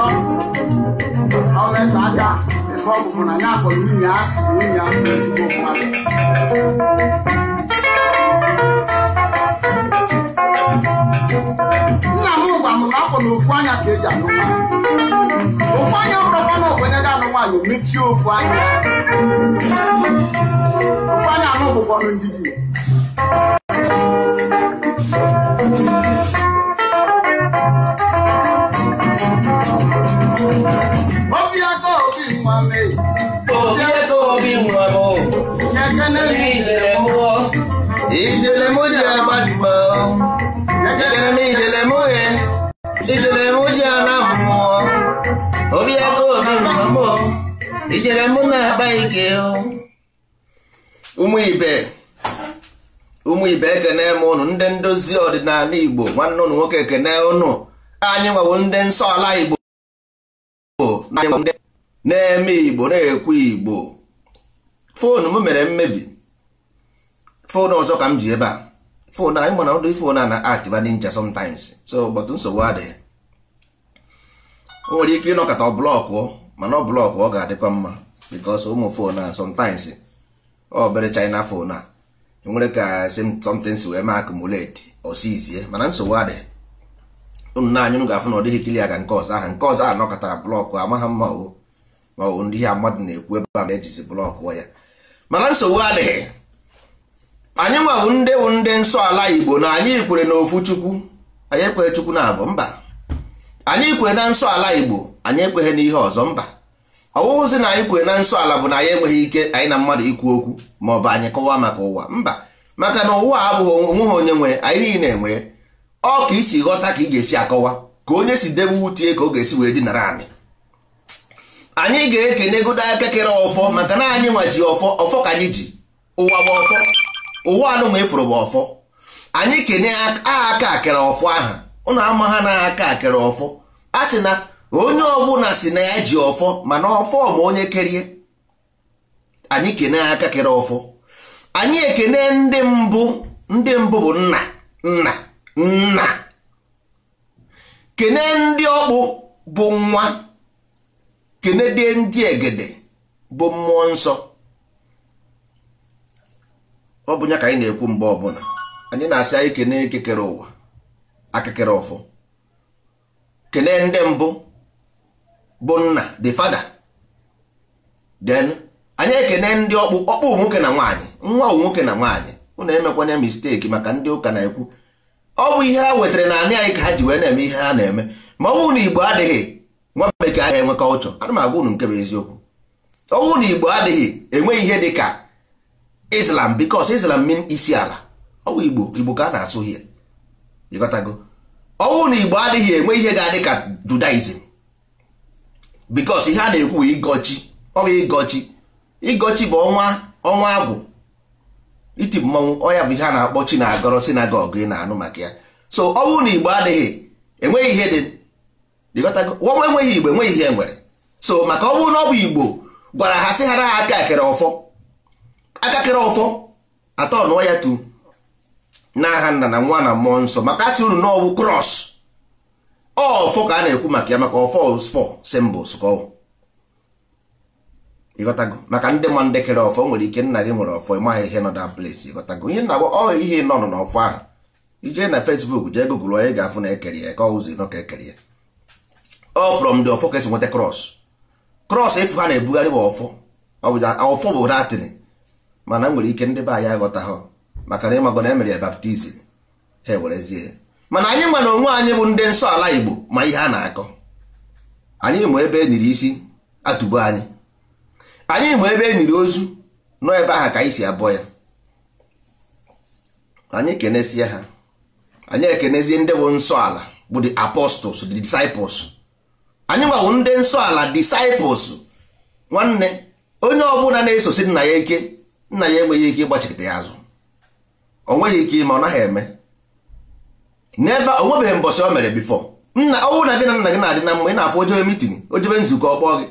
atọ ọleta aka ebe ọ na ya akọrọ nwunye ya asị na nwunye ya ezigbo mmadụ nna m gwa m na afọ na ofu anya ka eji anụ nwaanyị ofu anya bụrụkwa na ogbenye ga-anụ nwaanyị mechie ofu anya ofu anya anụ bụkwanụ ndị igbo nwanne ụnụ nwoke ekene ụnụ anyị nwewo ndị nsọ ala igbo na-eme igbo na-ekwu igbo foonu m mere mmebi foonu ọzọ ka m ji ebe a foonu anyị mana ụdị foonu a na activa ninja sometimes so but nsogbu adịghị o nwere ike ịnọkọta ọ blọkụ mana ọ blọkụ ọ ga-adịkwa mma because ụmụ foonu a sometimes ọ bere china foonu a nwere ka something si wee ma akụmuleti osizie eh? mana nsogbu adị unu na anyị ga-afụ na ọ dịghị kili aka nke ọzọ ahụ nke ọzọ ahụ nọkọtara blọkụ amaghị mma o ma ọ bụ ndị ihe mmadụ na-ekwu ebe a na-ejizi blọkụ ya mana nsogbu adịghị anyị nwabụ ndị bụ ndị nsọ ala igbo na anyị kwere na ofu chukwu anyị ekwere chukwu na abụ mba anyị kwere na nsọ ala igbo anyị ekweghị ihe ọzọ mba ọwụwụzi na anyị kwere na nsọ ala bụ na anyị enweghị ike anyị na mmadụ ikwu okwu ma ọ bụ anyị kọwaa maka ụwa mba maka na ụwa abụghị onweghị onye nwe anyị niile enwe ọ ka isi ghọta ka ị ga-esi akọwa ka onye si debe wutie ka ọ ga-esi wee dinara anyị anyị ga-ekene godo aka kere ọfọ maka na anyị nwaji ọfọ ọfọ ka anyị ji ụwa bụ ọfọ ụwa anụnwa ịfụrụ bụ ọfọ anyị kene aka akere ọfọ aha ụnụ ama ha na aka akere ọfọ a sị na onye ọbụla si na ya ji ọfọ mana ọfọ ma onye kerie anyị kene aka kere ọfọ anyị ekene ndị mbụ ndị mbụ bụ nna nna nna kene ndị ọkpụ bụ nwa kene dị ndị egede bụ mmụọ nsọ ọ bụ ya ka anyị na-ekwu mgbe ọbụla anyị na-asị anyị kene ekekere ụwa akekere ọfọ kene ndị mbụ bụ nna the father then anyị ekene ndị ọkpụ ọkpụ nwoke na nwaanyị nwa nwoke na nwaanyị ụnụ emekwanye mistake maka ndị ụka na-ekwu ọ bụ ihe ha wetara na anị anyị ka ha ji wee na-eme ihe ha na-eme ma ọ bụrụ na igbo adịghị nwa bekee ahụ enwe culture ana m agwa unu nke bụ eziokwu ọ bụrụ na igbo adịghị enweghị ihe dị ka islam because islam mean isi ala ọ bụ igbo igbo ka a na-asụ ihe ịghọtago ọ bụrụ na igbo adịghị enwe ihe ga-adị ka judaism bikos ihe a na-ekwu ịgọchi ọ bụ ịgọchi ịgọchi bụ ọnwa ọnwa agwụ iti mmọnwụ ọya bụ ihe a na-akpọ chi na-agọrọ sinagọg ị na-anụ maka ya so ọ bụrụ na igbo adịghị enweghị ihe dị nwa enweghị igbo enweghị ihe nwere so maka ọ bụrụ na ọ bụ igbo gwara ha sị ha na ha aka akere ọfọ aka kere ọfọ atọ nụọ ya tu nagha nna na nwa na mmụọ nsọ maka asị unu na ọ krọs ọfọ ka a na-ekwu maka ya maka ọfọ fọ symbols ka ọ ịghọtago maka ndị ma ndị kere ọfọ nwere ike nna gị nwere ọfọ ịmaghị ihe nọ na place ịghọtago ihe na ọ ihe nọ nọ n'ọfọ ahụ ije na Facebook jee gụgụrụ onye ga-afụ na ekere ya ka ọ ụzọ nọ ka ekere ya ọ from the ọfọ ka esi nweta krọs krọs efu ha na-ebugharị bụ ọfọ ọfọ bụ latin mana e nwere ike ndị be anyị aghọta maka na ịmago na emere ya baptizim ha ewerezie mana anyị nwa na onwe anyị bụ ndị nsọ ala Igbo ma ihe a na-akọ anyị ma ebe e isi atụbo anyị anyị ma ebe enyiri ozu nọ ebe ahụ ka anyị si abụọ ya anyị kenesie ha anyị ekenezie ndị bụ nsọ ala bụ the apostles the disciples anyị nwawo ndị nsọ ala disciples nwanne onye ọbụla na-esosi nna ya ike nna ya enweghị ike ịgbachikta ya azụ o nweghị ike ime ọ naghị eme never onwebeghị mbọchị o mere bifọ nna ọnwụ na gị na nna gị na-adị na mma ị na-afụ ojebe mitin ojebe nzukọ ọ kpọọ gị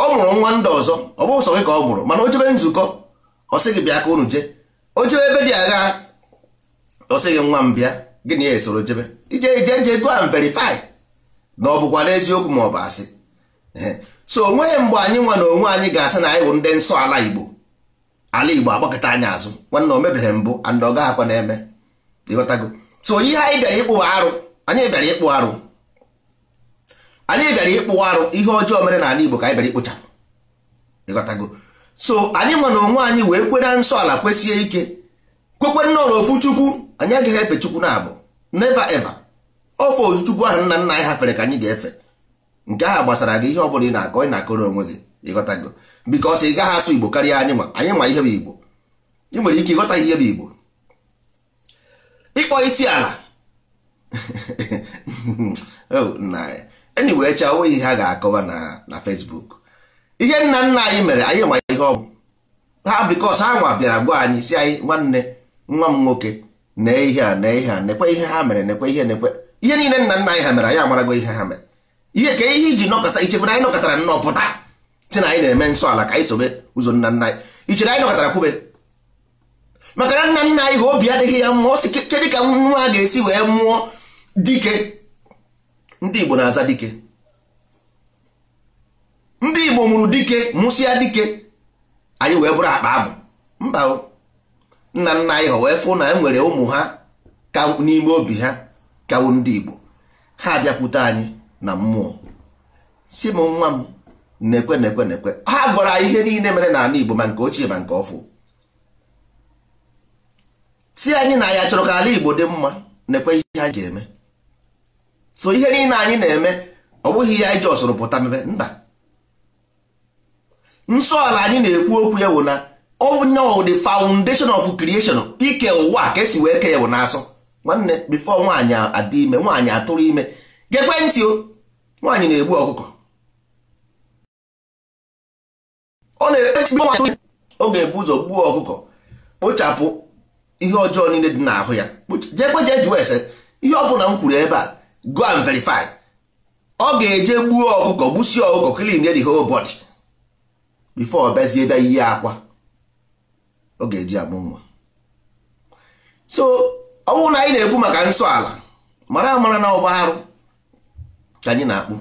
ọ mụrụ nwa ndị ọzọ ọ bụghị sọ gị ka ọ mụrụ mana ojebe nzukọ ọ sị gị bịa ka unu jee ojebe ebe dị agha ọ sị gị nwa m bịa gị na ya esoro jebe ije ije nje go and verify na ọ bụkwa n'eziokwu ma ọ bụ asị so onweghị mgbe anyị nwa na onwe anyị ga-asị na anyị bụ ndị nsọ ala Igbo ala Igbo agbakọta anyị azụ nwanna o mebeghị mbụ and ọ gaghị na-eme ịghọtago so ihe anyị bịara ịkpụ arụ anyị bịara ịkpụ arụ anyị bịara ịkpụ arụ ihe ọjọọ mere n'ala Igbo ka anyị bịara ịkpụchapụ ịghọtago so anyị nwa na onwe anyị wee kwe nsọ ala kwesịe ike kwekwe nnọọ na ofu chukwu anyị agaghị efe chukwu na-abụ neva eva ofe ozu chukwu ahụ nna nna anyị hafere ka anyị ga-efe nke ahụ gbasara gị ihe ọ bụla ị na-akọ ị na-akọrọ onwe gị ịghọtago bikọs ị gaghị asụ Igbo karịa anyị ma anyị ma ihe bụ Igbo ị nwere ike ịghọta ihe bụ Igbo ịkpọ isi ala enyi oh, wee chaa onweghị ihe a ga-akọwa na Facebook ihe nna nna anyị mere anyị nwa ihe ọ ha bikos ha nwa bịara gwa anyị si anyị nwanne nwa m nwoke nee ihe a nee ihe a nekwe ihe ha mere nekwe ihe nekwe ihe niile nna nna anyị ha mere anyị amarago ihe ha mere ihe ka ihe iji nọkọta ichebere anyị nọkọtara nnọọ pụta si na anyị na-eme nsọ ala ka anyị sobe ụzọ nna nna anyị ichere anyị nọkọtara kwube maka na nna nna anyị ha obi adịghị ya mma ọ kedu ka nwa a ga-esi wee mụọ dike ndị Igbo na-aza dike ndị Igbo mụrụ dike mụsịa dike anyị wee bụrụ akpa abụ mba nna nna anyị ha wee fụ na enwere ụmụ ha ka n'ime obi ha kawo ndị Igbo ha abịakwute anyị na mmụọ si m nwa m na-ekwe na-ekwe na-ekwe ha gwara ihe niile mere n'ala Igbo ma nke ochie ma nke ọfụ si anyị na ya chọrọ ka ala Igbo dị mma na-ekwe ihe anyị ga-eme so ihe niile anyị na-eme ọ bụghị ihe anyị ji ọsụrụ pụta mebe mba nsọ ala anyị na-ekwu okwu ya wụ na onye ọ dị foundation of creation ike ụwa ka esi wee kee ya wụ na-asọ nwanne before nwaanyị adị ime nwaanyị atụrụ ime gekwe ntị o nwaanyị na-egbu ọkụkọ ọ na-efe ọ ga-ebu ụzọ gbuo ọkụkọ kpochapụ ihe ọjọọ niile dị n'ahụ ya jekwe jee jụọ ese ihe ọ bụla m kwuru ebe a go and verify ọ ga-eje gbuo ọkụkọ gbusie ọkụkọ clean the whole body before bezie bịa iyi akwa ọ ga-eji amụ nwa so ọ bụrụ na anyị na-ekwu maka nsọ ala mara amara na ọgba arụ ka anyị na-akpụ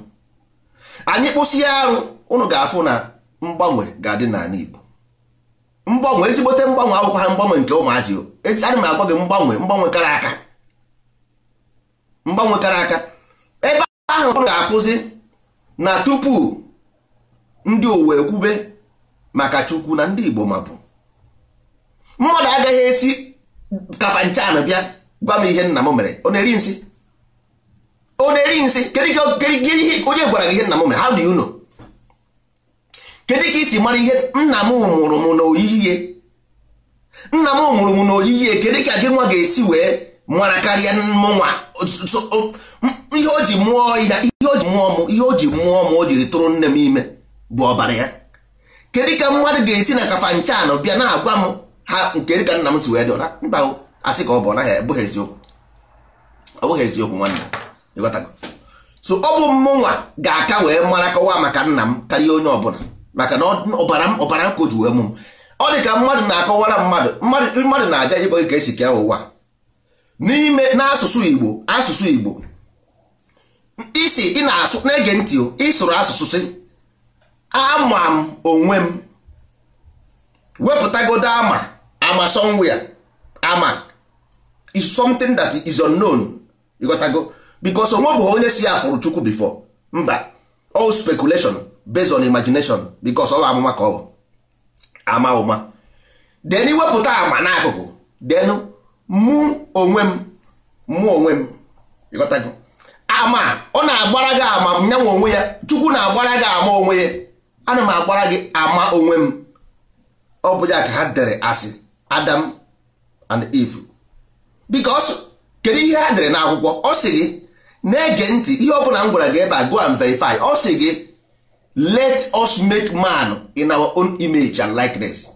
anyị kpụsie arụ ụnụ ga-afụ na mgbanwe ga-adị n'ala Igbo mgbanwe ezigbote mgbanwe akwụkwọ ha mgbanwe nke ụmụazị ana m agwa gị mgbanwe mgbanwe kara aka mgbanwe kara aka ebe ahụ ọ ga-afụzi na tupu ndị uwe ekwube maka chukwu na ndị igbo mapụ mmadụ agaghị esi kafa kafanchan bịa gwa m ihe nna m mere ọ na-eri nsị ọ na-eri nsị kedụ onye gwara gị ihe nna m mere how do you know kedu ka isi mara ihe nna m mụrụ m n'oyiyi nna m mụrụ m n'oyiyi kedu ka gị nwa ga-esi wee mara karịa nwa ihe o ji mụọ ihe o ji mụọ m ihe o ji mụọ m o jiri tụrụ nne m ime bụ ọbara ya kedu ka mmadụ ga-esi na kafa kafanchanụ bịa na-agwa m ha nke ka nna m si wee dịọra mba asị ka ọ bụ naghị abụghị eziokwu ọ bụghị eziokwu nwanne ịghọtago so ọ bụ mụnwa ga-aka wee mara kọwaa maka nna m karịa onye ọbụla maka na ọbara ọbara nkụ ji wee mụ ọ dị ka mmadụ na-akọwara mmadụ mmadụ na-aga ịkọ gị ka esi kea ụwa n'ime n'asụsụ Igbo asụsụ Igbo isi ị na-asụ na-ege ntị ịsụrụ asụsụ sị ama m onwe m wepụtagodo ama ama somewhere ama is something that is unknown ịghọtago because onwe bụ onye si afụrụ Chukwu before mba all speculation based on imagination because ọ bụ amụma ka ọ bụ ama ụma then iwepụta ama n'akụkụ denu mụ onwe m mụ onwe m ama ọ na-agbara gị ama m nyanwe onwe ya chukwu na-agbara gị ama onwe ya ana m agbara gị ama onwe m ọ bụ ya ka ha dere asị adam and eve because kedu ihe ha dere n'akwụkwọ ọ sị gị na-ege ntị ihe ọ bụla m gwara gị ebe a go and verify ọ sị gị let us make man in our own image and likeness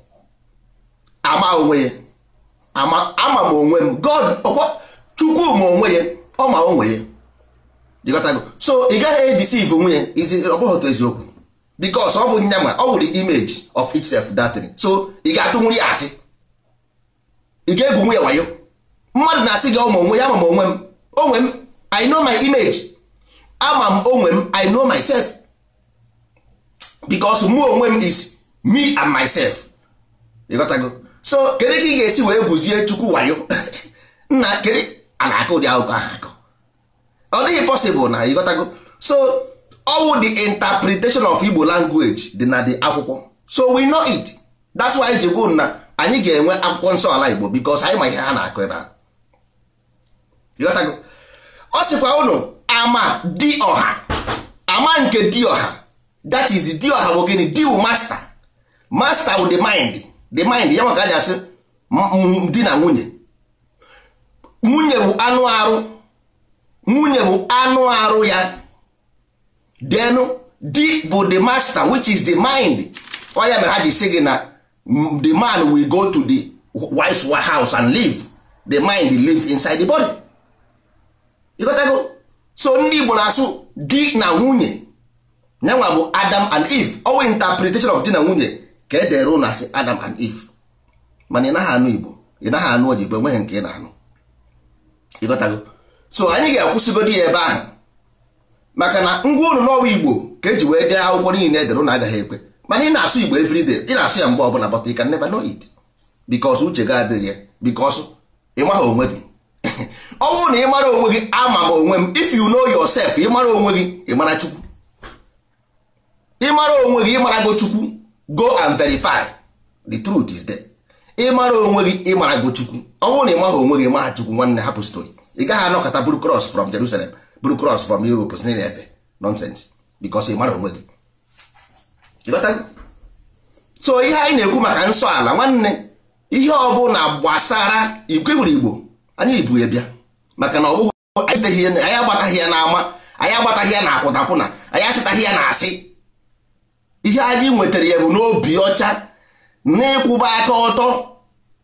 ama onwe ya ama ama m onwe m god oh, chukwu ma onwe ya ọ ma onwe ya jikọtago so ị gaghị edeceive onwe ya izi ọ otu eziokwu because ọ bụ nya ma ọ wụrụ image of itself datin so ị ga-atụnwuri ya asị ị ga-egwu onwe ya wayo mmadụ na-asị gị ọma onwe ya ama m onwe m onwe m i know my image ama m onwe m i know myself because mụ onwe m is me and myself ịghọtago so kedu ka ị ga-esi wee buzie chukwu wayo nna kedu a na-akụ ụdị akụkọ ahụ akụ ọ dịghị possible na ịghọtago so all the interpretation of Igbo language dị na the akwụkwọ so we know it that's why ji gwu na anyị ga-enwe akwụkwọ nsọ ala Igbo because anyị ma ihe ha na-akụ ebe a ịghọtago ọ sịkwa unu ama dị ọha ama nke dị ọha that is deal ha bụ gịnị deal master master with the mind the mind ya maka aja asị di na nwunye nwunye bụ anụ arụ nwunye bụ anụ arụ ya then di bụ the master which is the mind oya mere ha ji si gị na the man will go to the wife's house and live the mind live inside the body ịgotago so ndị Igbo na-asụ di na nwunye nyanwa bụ adam and eve owe interpretation of di na nwunye ka e edere ụnụ asị adam and eve mana ị naghị anụ igbo ị naghị anụ oyibo enweghị nke ị na-anụ ịghọtago so anyị ga-akwụsịgodi ya ebe ahụ maka na ngwa ụlọ n'ọwa igbo ka eji wee dee akwụkwọ niile edere ụnụ agaghị ekwe mana ị na-asụ igbo everyday ị na-asụ ya mgbe ọbụla but you can never know it because uche ga adịghị ya because ị maghị onwe gị ọ na ị mara onwe gị ama m onwe m if you know yourself ị mara onwe gị ị mara chukwu ịmara onwe gị ịmara go chukwu go and verify the truth is there ịmara onwe gị ịmara go chukwu ọ bụrụ na ị maghị onwe gị maha chukwu nwanne hapụ stori ị gaghị anọkọta buru cross from Jerusalem buru cross from Europe si na efe nonsense because ị mara onwe gị so ihe anyị na-ekwu maka nsọ ala nwanne ihe ọ ọbụla gbasara igwe wuru igbo anyị ibu ya bịa maka na ọ bụghị anyị agbataghị ya n'ama anyị agbataghị ya na akwụnakwụna anyị asịtaghị ya na asị ihe anyị nwetara ya bụ n'obi ọcha na ịkwụba aka ọtọ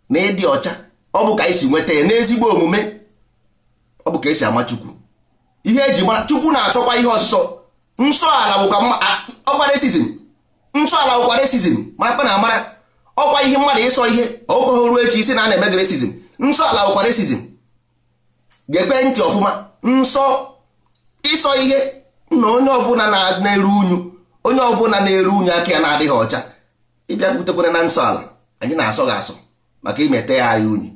na ịdị ọcha ọ bụ ka anyị si nweta ya n'ezigbo omume ọ bụ ka esi ama chukwu ihe eji mara chukwu na-asọkwa ihe ọsọ nsọ ala bụkwa resizm nsọ ala bụkwa resizm mara na amara ọkwa ihe mmadụ ịsọ ihe okohoruo echi isi na a na-eme resizm nsọ ala bụkwa resizm ga-ekwe ntị ọfụma nsọ ịsọ ihe na onye ọbụla na-eru unyu onye ọbụla na-eru unyi aka ya na-adịghị ọcha ịbịa butekwana na nsọ ala anyị na-asọ gị asọ maka imete ya anyị unyi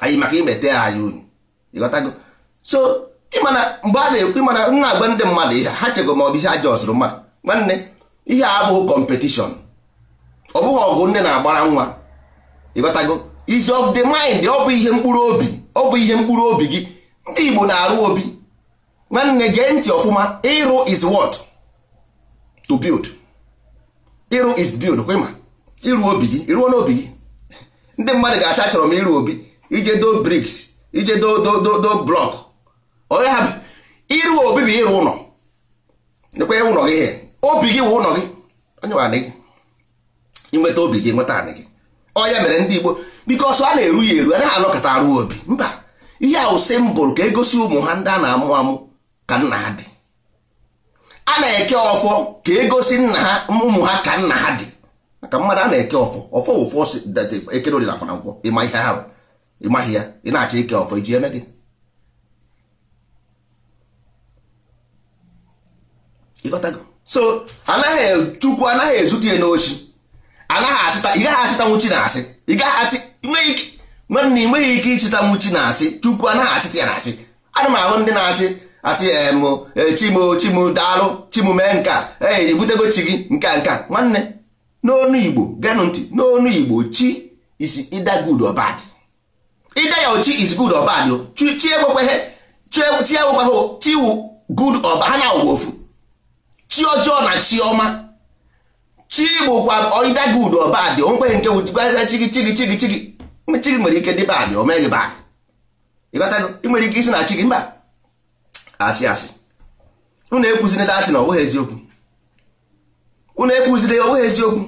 anyị maka imete ya anyị unyi ịghọtago so ịmana mgbe a na-ekwu ịmana nna agwa ndị mmadụ ihe ha chego ma ọ bụ ihe aja ọsụrụ mmadụ nwanne ihe a abụghị kọmpetishọn ọ bụghị ọgụ nne na-agbara nwa ịghọtago is of the mind ọ bụ ihe mkpụrụ obi ọ bụ ihe mkpụrụ obi gị ndị Igbo na-arụ obi nwanne gee ntị ọfụma ịrụ is what to build ịrụ is build kwema ịrụ obi gị ịrụọ n'obi gị ndị mmadụ ga-asị chọrọ m ịrụ obi ije do briks ije do do do do blọk onye ha ịrụ obi bụ ịrụ ụlọ nekwe ụlọ gị ihe obi gị wụ ụlọ gị onye wa gị inweta obi gị nweta anị gị ọnya mere ndị Igbo biko ọsọ a na-eru ya eru anaghị anọkọta arụ obi mba ihe a wụ simbụl ka egosi ụmụ ha ndị a na-amụ amụ ka nna ha dị a na-eke ọfọ ka egosi nna ha ụmụ ha ka nna ha dị maka mmadụ a na-eke ọfọ ọfọ ụfọ ekere dị na akwụkwọ ịma ihe ahụ ịmaghị ya ị na-achọ ike ọfọ iji eme gị so anaghị e, chukwu anaghị ezute ya n'ochi anaghị asịta ị gaghị asịtanwu chi na asị ị gaghị asị nwanne ị nweghị ike ịchịtanwu chi na asị chukwu anaghị asịta ya na asị ana m ahụ ndị na-asị asị eh, eh, chimchimdaalụ mee nka ee eh, ebutego chi gị nka nka nwanne n'onu igbo genụ ntị n'onu igbo chi is either good or bad ide ya chi is good or bad chi enwekweghị chi enwekweghị e, chi wu good or bad ha na-awụ ofu chi ọjọọ na chi ọma chi bụkwa ide good or bad onwekweghị nke wụchigwa chi gị chi gị chi gị chi gị chi gị nwere ike dị bad o meghị bad ịghọtago ị nwere ike isi na chi gị mba asị asị unu ekwuziri datị na ọ bụghị eziokwu unu ekwuziri ọ bụghị eziokwu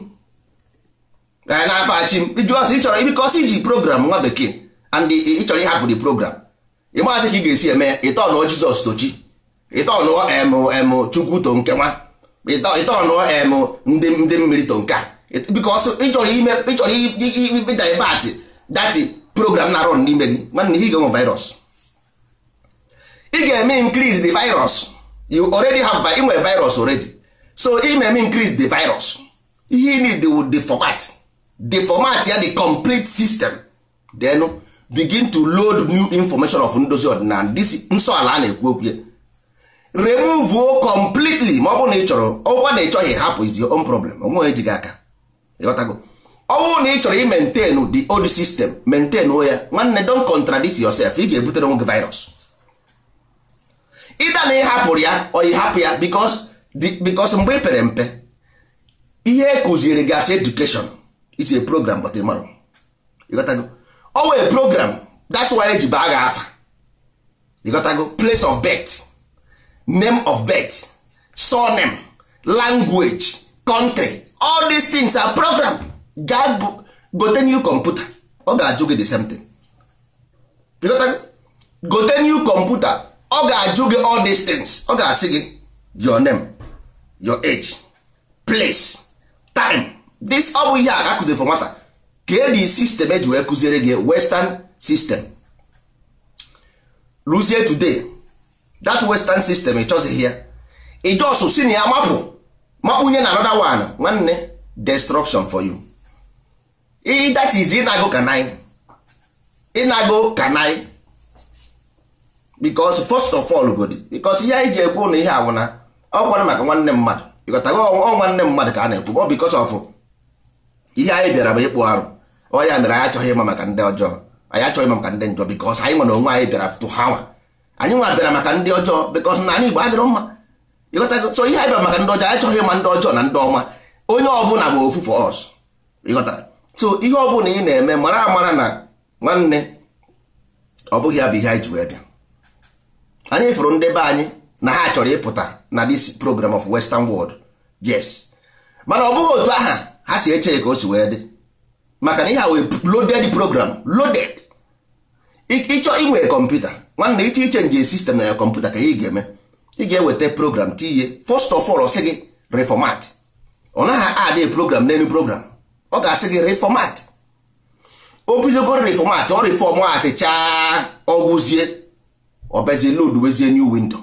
na n'afọ achị m ịjụ ọsị ịchọrọ bikọsị iji program nwa bekee and ịchọrọ ịhapụ the program ịmasị ka ị ga-esi eme ya ọnụọ Jizọs tochi ịtọnụọ em Chukwu to nke nwa ịtọnụọ em ndị ndị mmiri to nke a bikọsị ịchọrọ ime ịchọrọ divert datị program na-arụ n'ime gị nwanne ihe ga-enwe virus ị ga-eme increase the virus you already have ị virus already so ị eme increase the virus ihe need the format the format ya the complete system then begin to load new information of ndozi ọdịnala and nsọ ala a na-ekwu okwu ya remove o completely ma ọ bụrụ na ị chọrọ ọgwụ na ị chọghị hapụ is your own problem onwe gị aka ịghọtago ọ bụrụ na ị chọrọ i maintain the old system maintain ya nwanne don contradict yourself ị ga-ebutere onwe gị virus ịda na ịhapụrụ ya ọ hapụ ya bikos mgbe ị e pere mpe ihe e kụziri gị asị is a program but ịmarụ ịghọtago ọ wee program that's why eji baa gị afa ịghọtago place of birth name of birth surname language country all these things are program gaa gote new computer ọ ga-ajụ gị the same thing gote new computer ọ ga-ajụ gị all these things ọ ga-asị gị your name your age place time this ọ bụ ihe a akụziri for nwata ka di sistem eji wee kụziere gị western system Luzie today that western system ịchọzighị ya ịjọsụ si na ya mapụ makpunye na anoda one nwanne destruction for you that is ịnago kanai ịnago kanai because first of all godi ihe anyị ji ekwu na ihe awụna ọkwara maka nwanne mmadụ ịghọtago ọ nwanne mmadụ ka a na-ekwu ọ of ihe anyị bịara bụ ịkpụ arụ ọ mere anyị achọghị ịma maka ndị ọjọọ anyị achọghị ịma maka ndị njọ because anyị nwere onwe anyị bịara ha anyị nwa maka ndị ọjọọ na anyị Igbo adịrọ mma ihe anyị bịara maka ndị ọjọọ anyị chọghị ịma ndị na ndị ọma onye ọbụla bụ ofu ihe ọbụla ị na-eme mara amara na nwanne ọ bụ ihe anyị ji wee bịa anyị fụrụ ndebe anyị na ha chọrọ ịpụta na this program of western world yes mana ọ bụghị otu aha ha si eche ka o si wee dị maka na ihe ha wee loaded program loaded ịchọ inwe kọmputa iche ịchọ nje sistem na ya kọmputa ka ị ga-eme ị ga-eweta program tinye first of all ọ sị gị reformat ọ naghị adị program n'elu program ọ ga-asị gị reformat o bidogoro reformat ọ reformat chaa ọgwụzie ọbezi load wezie new window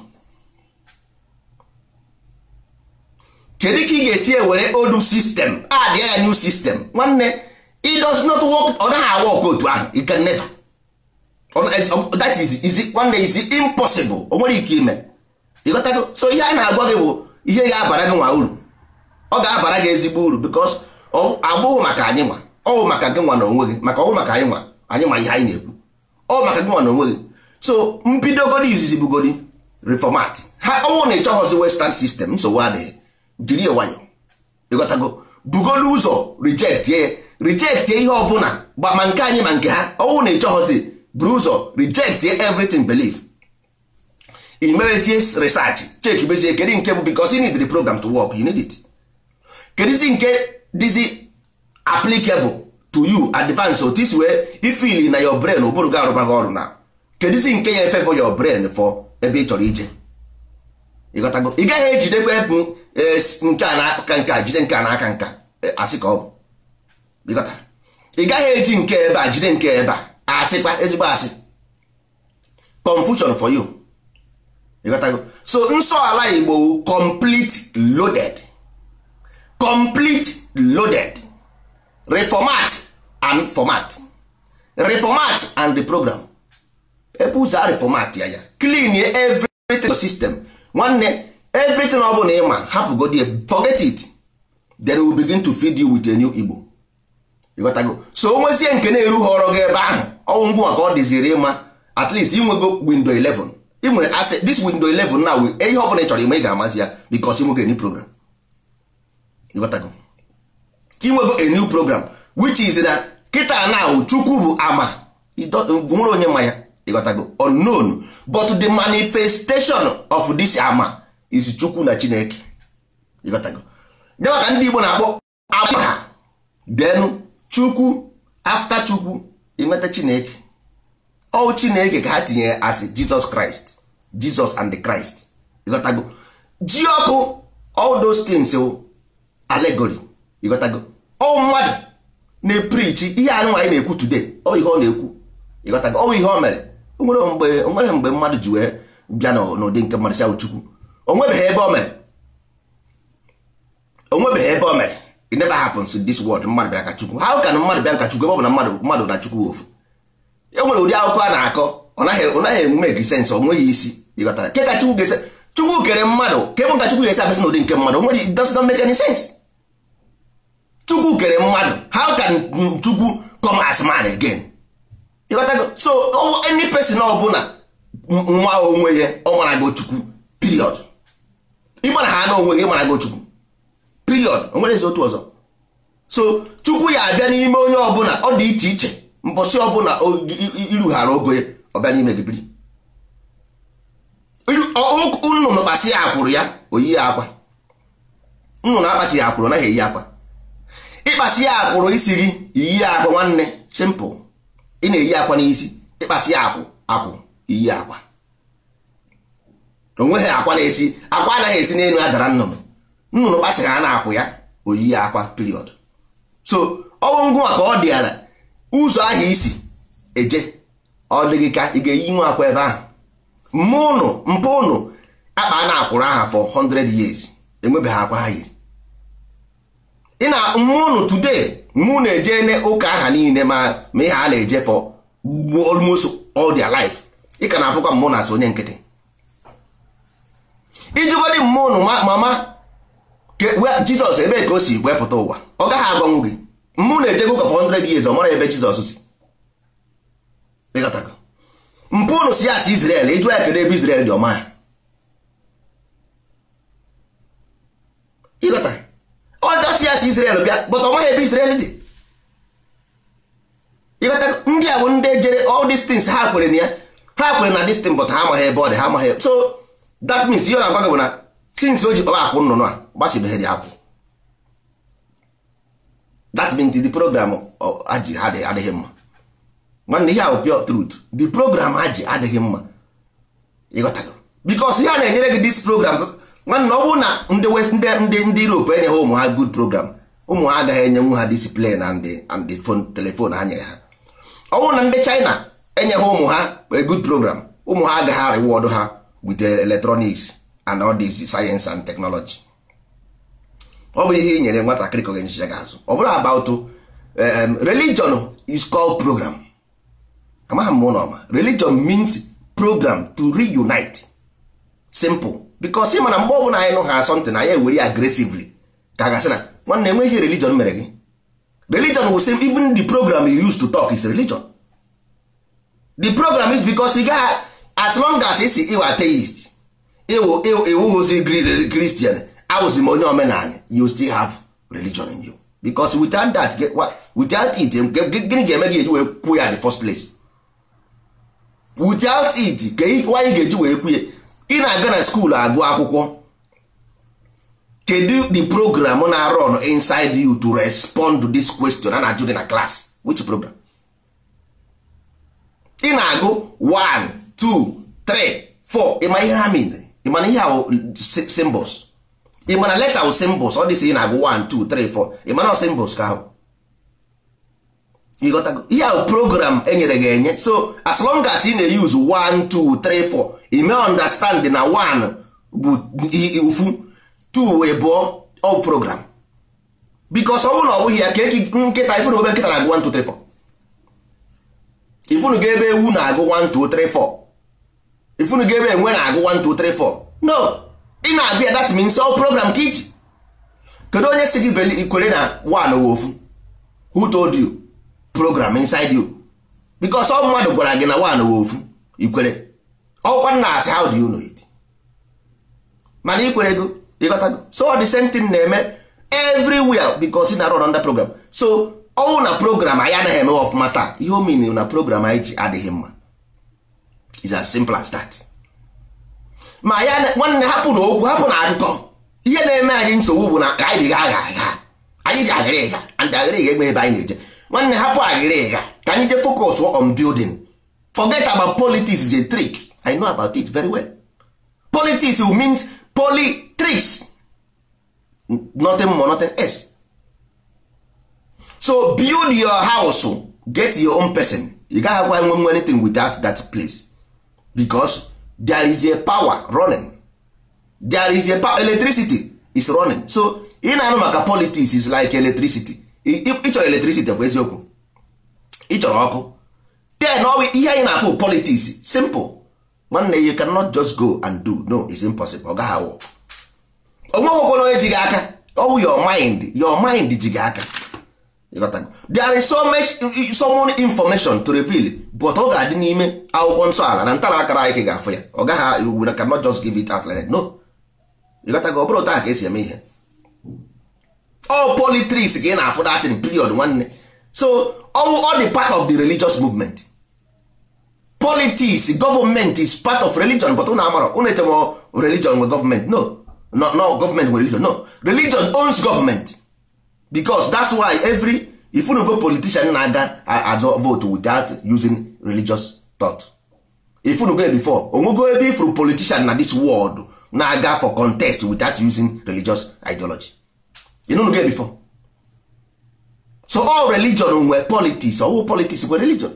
kedu ka ị ga-esi ewere old system add ya new system nwanne it does not work ọ naghị awa ọkụ otu ahụ it can never that is is nwanne is impossible o nwere ike ime ịghọtago so ihe a na-agwa gị bụ ihe ga-abara gị nwa uru ọ ga-abara gị ezigbo uru because abụghị maka anyị nwa ọ maka gị nwa na onwe gị maka ọ bụ maka anyị nwa anyị nwa ihe anyị na-ekwu ọ bụ maka gị nwa na onwe gị so mbido mbidogodi izizi bugodi reformat ha ọnwụ na ịchọghọzi western system nsogbu adịghị jiri nwayọ ịghọtago bugolu ụzọ rejektie rejektie ihe ọbụla ma nke anyị ma nke ha ọnwụ na ịchọghọzi buru ụzọ rejektie everything belief imerezie research cheki bezie kedu nke bụ because you need the program to work you need it kedizi nke dịzi applicable to you advance otis wee ifili na your brain ụbụrụ ga arụbaghị ọrụ na kedụzi nke ya for your brain for ebe ị chọrọ ije ị gaghị ejidekwa ebu e, nke a n'aka nka jide nke a n'aka nka e, asị ka ọ bụ ị gaghị eji nke ebe a jide nke ebe a asịkwa ezigbo asị confusion for you ịghọtago so nsọ ala Igbo complete loaded complete loaded reformat and format reformat and the program ebe ụzọ a reformat ya ya clean everything system nwanne everything ọ bụla ịma hapụgodi forget it then we begin to feed you with a new igbo ịghọtago so onwezie nke na erughị ọrụ gị ebe ahụ ọnwụ ngwa ka ọ dịziri ịma at least inwego window 11 ị nwere this window 11 na ihe ọ bụla ị chọrọ ime ị ga-amazi ya because inwego new program ịghọtago inwego a new program which is na kịta na chukwu bụ ama nwere onye ma ya ịghọtago unknown but the manifestation of this ama is chukwu na chineke ịghọtago nyewa ka ndị igbo na-akpọ ama ha then chukwu after chukwu ịnweta chineke ọ chineke ka ha tinye as jesus christ jesus and the christ ịghọtago ji ọkụ all those things o. allegory ịghọtago ọ mmadụ na-eprichi ihe anyị nwaanyị na-ekwu today ọ ihe ọ na-ekwu ịghọtago ọ ihe o mere onwere mgbe mmadụ ji wee bịa n'ụdị nke mmadụ si Chukwu onwebeghị ebe o mere onwebeghị ebe o mere it never happens in this world mmadụ bịa ka Chukwu how can mmadụ bịa ka Chukwu ebe ọ bụ na mmadụ mmadụ na Chukwu ofu e nwere ụdị akwụkwọ a na-akọ ọ naghị ọ naghị eme gị sensị o nweghị isi ịghọtara ke ka Chukwu ga-ese Chukwu kere mmadụ ka ebe nka Chukwu ga-esi abịasị n'ụdị nke mmadụ onwere it does not make any sense Chukwu kere mmadụ how can Chukwu come as man again ịghọtago so any person ọbụla nwa onwe ya ọ mara gị Chukwu period ịmara ha na onwe gị mara gị Chukwu period o nwere ezi otu ọzọ so Chukwu ya abịa n'ime onye ọbụla ọ dị iche iche mbọsị ọbụla irughara ogo ya ọ bịa n'ime gị biri nnụnụ kpasị ya akwụrụ ya oyiyi ya akwa nnụnụ akpasị ya akwụrụ naghị eyi akwa ịkpasị ya akwụrụ isi gị iyi akwa nwanne simple ị na-eyi akwa n'isi ịkpasị ya akwụ akwụ iyi akwa onweghị akwa na-esi akwa anaghị esi n'elu adara nnụnụ nnụnụ kpasịghị a na-akwụ ya oyiyi akwa period so ọnwụ ngụ ka ọ dị ala ụzọ ahụ isi eje ọ dịghị ka ị ga-eyi nwa akwa ebe ahụ mma ụnụ mpụ ụnụ akpa a na-akwụrụ aha for 100 years enwebeghị akwa ha yiri ị na mmụọ unu today mmụọ na eje ụka aha niile ma ma ihe a na-eje for almost all their life ị ka na-afụkwa mmụọ na-asụ onye nkịtị ijigodi mmụọ unu mama jizọs ebe ka o si wepụta ụwa ọ gaghị agọnwụ gị mmụọ na-ejego ụka for 100 years ọ mara ebe jizọs si mpụ unu si asị Israel ịjụ ya kedu ebe Israel dị ọma ịghọta si Israel bịa but ọ maghị ebe Israel dị ịghọta ndị a bụ ndị jere all these ha kwere na ya ha kwere na this thing but ha amaghị ebe ọ dị ha amaghị so that means ihe ọ na-agwa gị bụ na tins o ji kpaba akwụ nnụnụ a dị akwụ that means the program aji adịghị mma nwanne ihe ahụ pure truth the program aji adịghị mma ịghọtago because ihe a na-enyere gị this program nwanne ọ bụrụ na ndị west ndị ndị europe enyeghị ụmụ ha good program ụmụ ha agaghị enyenwu ha discipline na ndị and telefon ha nyere ha ọ bụrụ na ndị china enyeghị ụmụ ha good program ụmụ ha agaghị reward ha with electronics and all this science and technology ọ bụ ihe i nyere nwatakịrị ka ọ ga-enyecha gị azụ ọ bụrụ about um, religion is called program amaghị m ụlọ ọma religion means program to reunite simple bikos ị mana mgbe ọbụla anyị nụ ha asọntị na anyị ewere ya agresively ka gasị na nwanne enweghị religion mere gị religion will save even the program you use to talk is religion the program is because ị gaghị as long as isi iwe atheist iwuhozi christian awụzi m onye omenala you still have religion in you because without that without it gịnị ga-eme gị eji wee kwuo ya the first place without it why ị ga-eji wee kwuo ị na-aga na skuulu agụ akwụkwọ kedu the program na run inside you to respond to this question a na-ajụ gị na class which program ị na-agụ 1 2 3 4 ịma ihe ha mere ịmana ihe ahụ symbols ịmana leta ahụ symbols ọ dịsị ị na-agụ 1 2 3 4 ịmana symbols ka ahụ ihe ahụ program enyere gị enye so as long as ị na-eyuzu i mee understand na one bụ ufu two wee bụọ all program because ọ bụrụ na ọ bụghị ya ka nkịta ifunu ebe nkịta na-agụ 1 2 3 4 ifunu ga ebe ewu na-agụ 1 2 3 4 ifunu ga ebe enwe na-agụ 1 2 3 4 no ị na-agụ dat that means all program ka iji kedu onye si gị kwere na one wee ofu who told you program inside you because ọ mmadụ gwara gị na one wee ofu ikwere ọkwa na asị how do you know it mana ị kwere ego ịghọtago so the same thing na-eme everywhere because ị na-arụ under program so ọnwụ na program anyị anaghị eme ọfụma mata ihe o na program anyị ji adịghị mma is as simple as that ma ya nwanne hapụ na okwu hapụ na akụkọ ihe na-eme anyị nsogbu bụ na anyị dịghị agha agha anyị ji agịrịga ndị agịrịga egbe ebe anyị na-eje nwanne hapụ agịrịga ka anyị jee focus on building forget about politics is a trick i know about it very well politics means polytrics nothing more nothing else so build your house get your own person you can't have nwe nwe anything without that place because there is a power running there is a power electricity is running so ị na-anụ maka politics is like electricity ịchọrọ electricity bụ eziokwu ịchọrọ ọkụ then ihe anyị na-afụ politics simple nwanne you cannot just go and do no it's impossible ọ gaghị awụ onye ji gị aka ọwụ your mind your mind ji gị aka there is so much so much information to reveal but ọ ga-adị n'ime akwụkwọ nsọ ala na ntara akara anyị ga-afụ ya ọ gaghị na cannot just give it out like that no ịghọtago ọ bụrụ otu a ka esi eme ihe all politics ka ị na-afụ datin period nwanne so all dị part of the religious movement politics government is part of religion but na amara unu echem religion nwe government no no no government nwe religion no religion owns government because that's why every if unu go politician na-aga azọ vote without using religious thought if unu go before onwego ebe ifru politician na this world na-aga for contest without using religious ideology you know go before so all religion nwe politics all politics nwe religion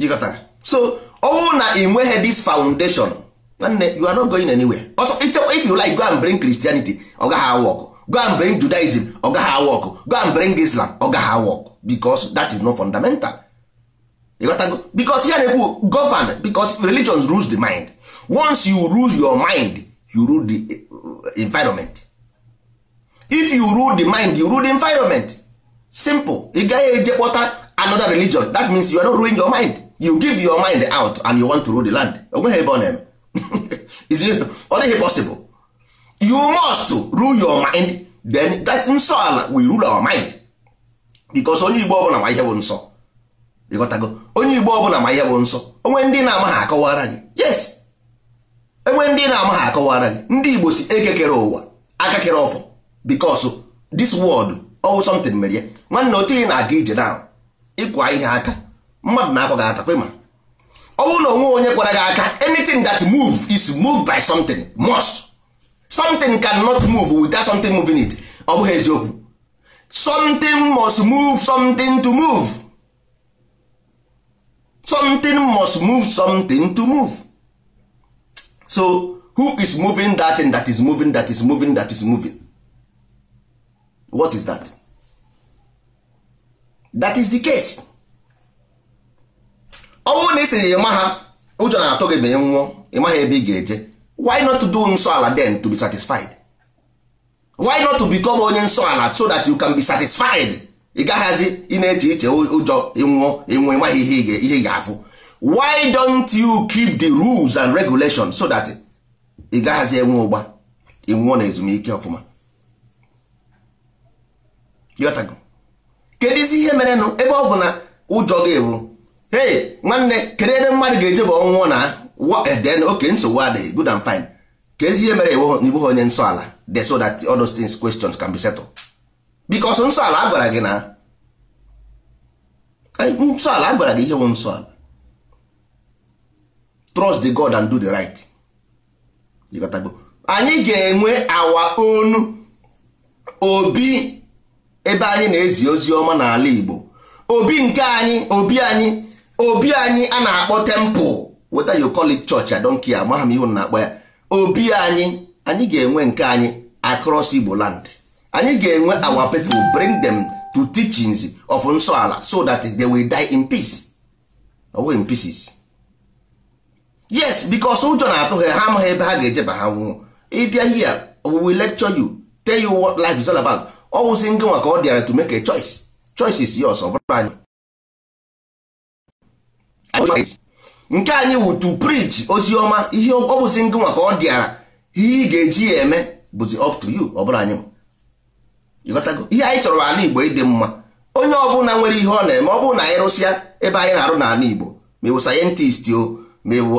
ịghọtara so ọ bụrụ na ị nweghị this foundation nwanne you are not going anywhere also if you like go and bring Christianity ọ gaghị awa go and bring Judaism ọ gaghị awa go and bring Islam ọ gaghị awa ọkụ because that is not fundamental ịghọtago because ya na-ekwu govern because religion rules the mind once you rule your mind you rule the eh, environment if you rule the mind you rule the environment simple ị gaghị eje kpọta another religion that means you are not ruling your mind you give your mind out and you want to rule the land onweghị ebe ọ na-eme ọ dịghị possible you must rule your mind then that nsọ ala will rule our mind because onye igbo ọbụla ma ihe bụ nsọ ịghọtago onye igbo ọbụla ma ihe bụ nsọ onwe ndị na amaghị ha akọwara gị yes enwe ndị na amaghị ha akọwara gị ndị igbo si ekekere ụwa aka kere ọfọ because this world ọwụ oh, something mere ya nwanne otu ị na-aga ije na ịkwa ihe aka mmadụ na-akọ gị ata ma ọ bụrụ na onwe onye kwara gị aka anything that move is moved by something must something cannot move without something moving it ọ bụghị eziokwu something must move something to move something must move something to move so who is moving that thing that is moving that is moving that is moving what is that that is the case ọ bụrụ na ị sịrị ịma ha ụjọ na-atụ gị banye nwụọ ịmaghị ebe ị ga-eje why not to do nsọ ala then to be satisfied why not to become onye nsọ ala so that you can be satisfied ị gaghazi ị na-eche iche ụjọ ịnwụọ ịnwụ ịmaghị ihe ihe ga-afụ why don't you keep the rules and regulations so that ị gaghazi enwe ụgba ịnwụọ na ezumike ọfụma kedu ihe merenụ ebe ọ bụ na ụjọ gị bụ hey nwanne kedu ebe mmadụ ga-eje bụ ọnwụọ na eh, then oke nsogbu adịghị good and fine ka ezi ihe mere igbo onye nsọ ala de so that all those things questions can be settled because nsọ ala agwara gị na eh, nsọ ala agwara gị ihe bụ nsọ ala trust the god and do the right anyị ga-enwe awa onu obi ebe anyị na-ezi ozi ọma n'ala igbo obi nke anyị obi anyị obi anyị a na-akpọ temple whether you call it church I don't care m na-akpọ ya obi anyị anyị ga-enwe nke anyị across Igbo land anyị ga-enwe awa pepl bring them to teachings of nsọ ala so that they will die in peace ọ bụghị pieces yes because ụjọ na-atụ ha ha amaghị ebe ha ga-ejeba ha nwụọ ịbịa here we lecture you tell you what life is all about ọ wụsị ngị nwa ka ọ dịara to make a choice choice is ọ bụrụ anyị nke anyị wu to preach ozi ọma ihe ọ bụzi ndị ka ọ dịara ihe ị ga-eji ya eme bụzi up to you ọ bụrụ anyị ihe anyị chọrọ ala Igbo ịdị mma onye ọbụla nwere ihe ọ na-eme ọ bụrụ na anyị rụsịa ebe anyị na-arụ n'ala Igbo ma ịwụ sayentist o ma ịwụ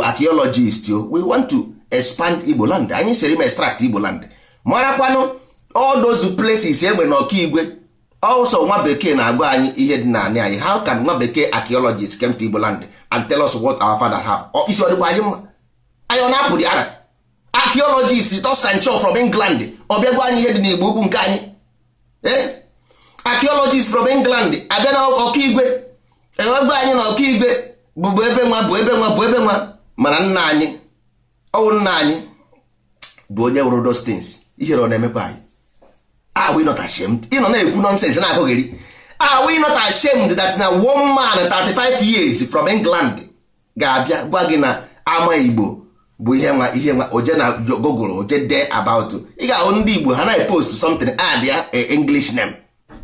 o we want to expand Igbo land anyị siri ma extract Igbo land marakwanụ all those places enwere Igwe. also nwa bekee na-agwa anyị ihe dị naanị anyị how can nwa bekee archaeologists came to Igboland and tell us what our father have isi ọdịkwa anyị mma anyị ọ na-apụ dị ara archaeologist Sancho from England ọ bịagwa anyị ihe dị n'Igbo ukwu nke anyị ee eh? archaeologist from England abịa na ọkaigwe ewegwa anyị na ọkaigwe bụbụ ebe nwa bụ ebe nwa bụ ebe nwa mana nna anyị ọwụ nna anyị bụ onye wụrụ those things ihere ọ na-emekwa anyị are ah, we not ashamed ị nọ na-ekwu nonsense na-akụghị gị are we not ashamed that na one man 35 years from England ga-abịa gwa gị na ama Igbo bụ ihe nwa ihe nwa oje na Google oje dee about ị ga-ahụ ndị Igbo ha na-epost something add ah, ya English name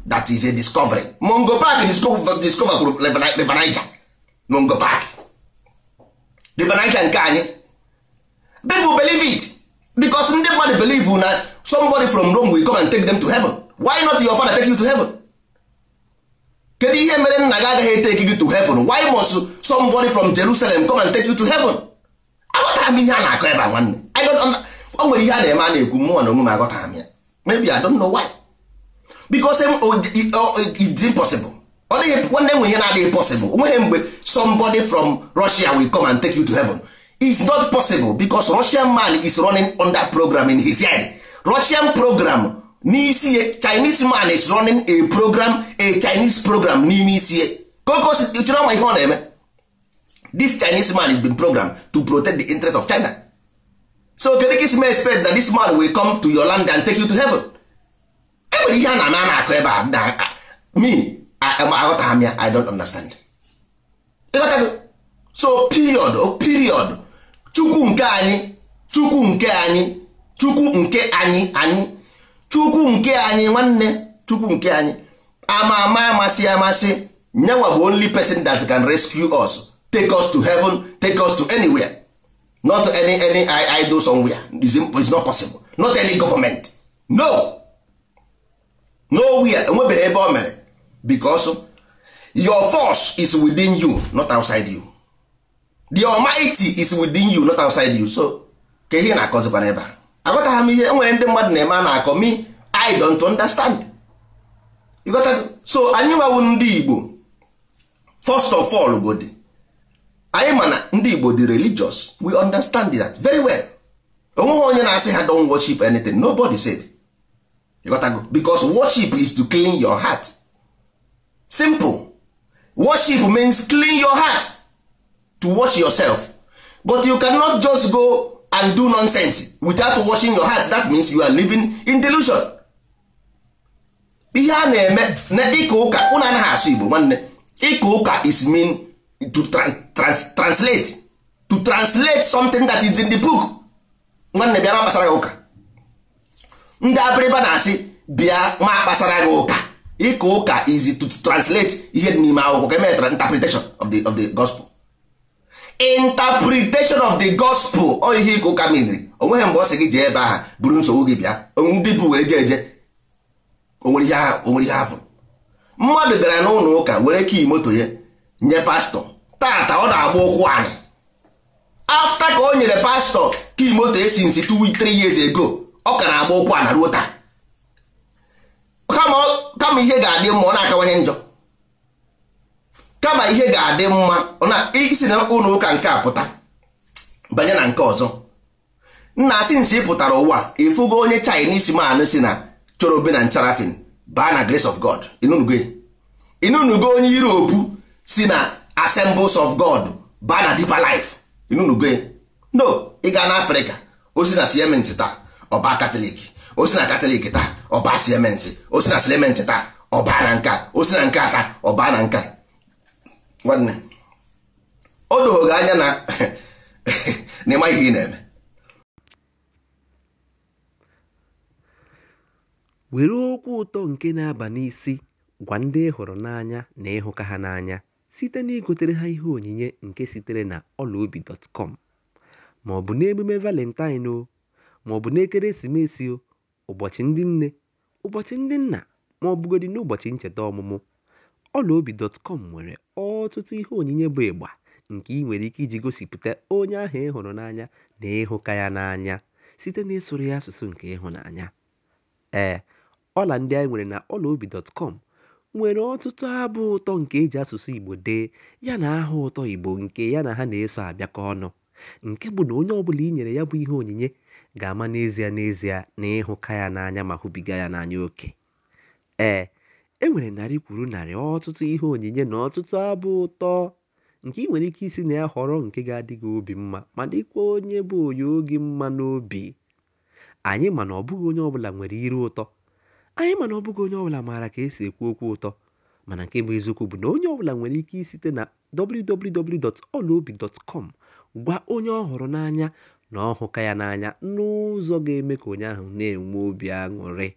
that is a discovery Mungo Park discover kwuru the Niger Mungo Park River Niger nke anyị people believe it because ndị mmadụ believe na somebody from Rome will come and take them to heaven why not your father take you to heaven kedu ihe mere nna gị agaghị take you to heaven why must somebody from Jerusalem come and take you to heaven aghọtara m ihe a na-akọ ebe a nwanne o nwere ihe a na-eme a na-ekwu mmụọ na onwe aghọtara m ya maybe I don't know why because it's impossible ọ dịghị nwanne nwe ihe na-adịghị possible onweghị mgbe somebody from Russia will come and take you to heaven is not possible because russian man is running on that program in his head russian program n'isi chinese man is running a program a chinese program n'ime isi kokochere ihe ọ na-eme this chinese man is been programmed to protect the interest of china so kedu ka isi expect that this man will come to your land and take you to heaven e ihe a na-ama a na-akụ ebe a na me aghọtaghị m ya i don't understand so period oh, period chukwu nke anyị chukwu nke anyị chukwu nke anyị anyị chukwu nke anyị nwanne chukwu nke anyị ama ama amasị amasị nyewa bụ only person that can rescue us take us to heaven take us to anywhere not any any idol somewhere is not possible not any government no nowhere enwebeghị ebe o mere because your force is within you not outside you the almighty is within you not outside you so ka ihe na-akọzikwa n'ebe a agọtagha m ihe enwere ndị mmadụ na-eme a na-akọ me i don't understand ịghọtago so anyị Ndi ndị igbo first of all godi anyị ma na ndị igbo di religious we understand that very well onweghị onye na-asị ha don worship anything nobody said ịghọtago because worship is to clean your heart simple worship means clean your heart to wash yourself but you cannot just go and do nonsense without washing your heart that means you are living in delusion ihe a na-eme na ịka ụka ụna anaghị asụ igbo nwanne ịka ụka is mean to translate to translate something that is in the book nwanne bịa ma kpasara gị ụka ndị abịrịba na-asị bịa ma kpasara gị ụka ịka ụka is to translate ihe n'ime akwụkwọ ka emere interpretation of the of the gospel interpretation of the gospel ọ ihe ịka ụka meriri onweghị mgbe ọ sị gị jee ebe aha buru nsogbu gị bịa ndị bụ wee jee eje onwere ihe afọ mmadụ gara n'ụlọ ụka were kii moto ya nye pastọ tata ọ na-agba ụkwụ anyị afta ka o nyere pastọ kii moto esi nsi t 3 years ago ọ ka na-agba ụkwụ ana ruo taa kama ihe ga-adị mma ọ na-akawanye njọ kama ihe ga-adị mma na isi na ụlọ ụka nke a pụta banye na nke ọzọ nna asị nsị pụtara ụwa ịfụgo onye Chinese man si na chorobe na ncharafin baa na grace of God inunugo e. onye Europe si na assembles of God baa na deeper life inunugo e. no ịga na Afrịka osi na siementi taa ọba katọlik osi na katọlik taa ọba siementi osi na siementi taa ọba na nka osi na nka taa ọba na nka nwanne o anya na ịma ihe ị na-eme were okwu ụtọ nke na-aba n'isi gwa ndị hụrụ n'anya na ịhụka ha n'anya site na igotere ha ihe onyinye nke sitere na ọlaobi.com ma ọ bụ n'emume valentine o ma ọ bụ n'ekeresimesi o ụbọchị ndị nne ụbọchị ndị nna ma bụgodị n'ụbọchị ncheta ọmụmụ ọlaobi.com nwere ọtụtụ ihe onyinye bụ ịgba nke ị nwere ike iji gosipụta onye ahụ ị hụrụ n'anya na ịhụka ya n'anya site n'ịsụrụ ya asụsụ nke ịhụnanya. Ee, ọla ndị anyị nwere na ọlaobi.com nwere ọtụtụ abụ ụtọ nke e ji asụsụ Igbo dee yana aha ụtọ Igbo nke ya na ha na-eso abịakọ ọnụ, nke bụ na onye ọbụla i nyere ya bụ ihe onyinye ga-ama n'ezie n'ezie na ịhụka ya n'anya ma hụbiga ya n'anya oke. Ee. E narị kwuru narị ọtụtụ ihe onyinye na ọtụtụ abụ ụtọ nke ị nwere ike isi na ya họrọ nke ga-adị gị obi mma ma dịkwa onye bụ onye oge mma n'obi. Anyị ma na ọ bụghị onye ọbụla nwere iru ụtọ, anyị ma na ọ bụghị onye ọbụla maara ka esi ekwu okwu ụtọ, mana nke bụ eziokwu bụ na onye ọbụla nwere ike isite na www.olaobi.com gwa onye ọ hụrụ n'anya na ọhụka ya n'anya n'ụzọ ga-eme ka onye ahụ na-enwe obi aṅụrị.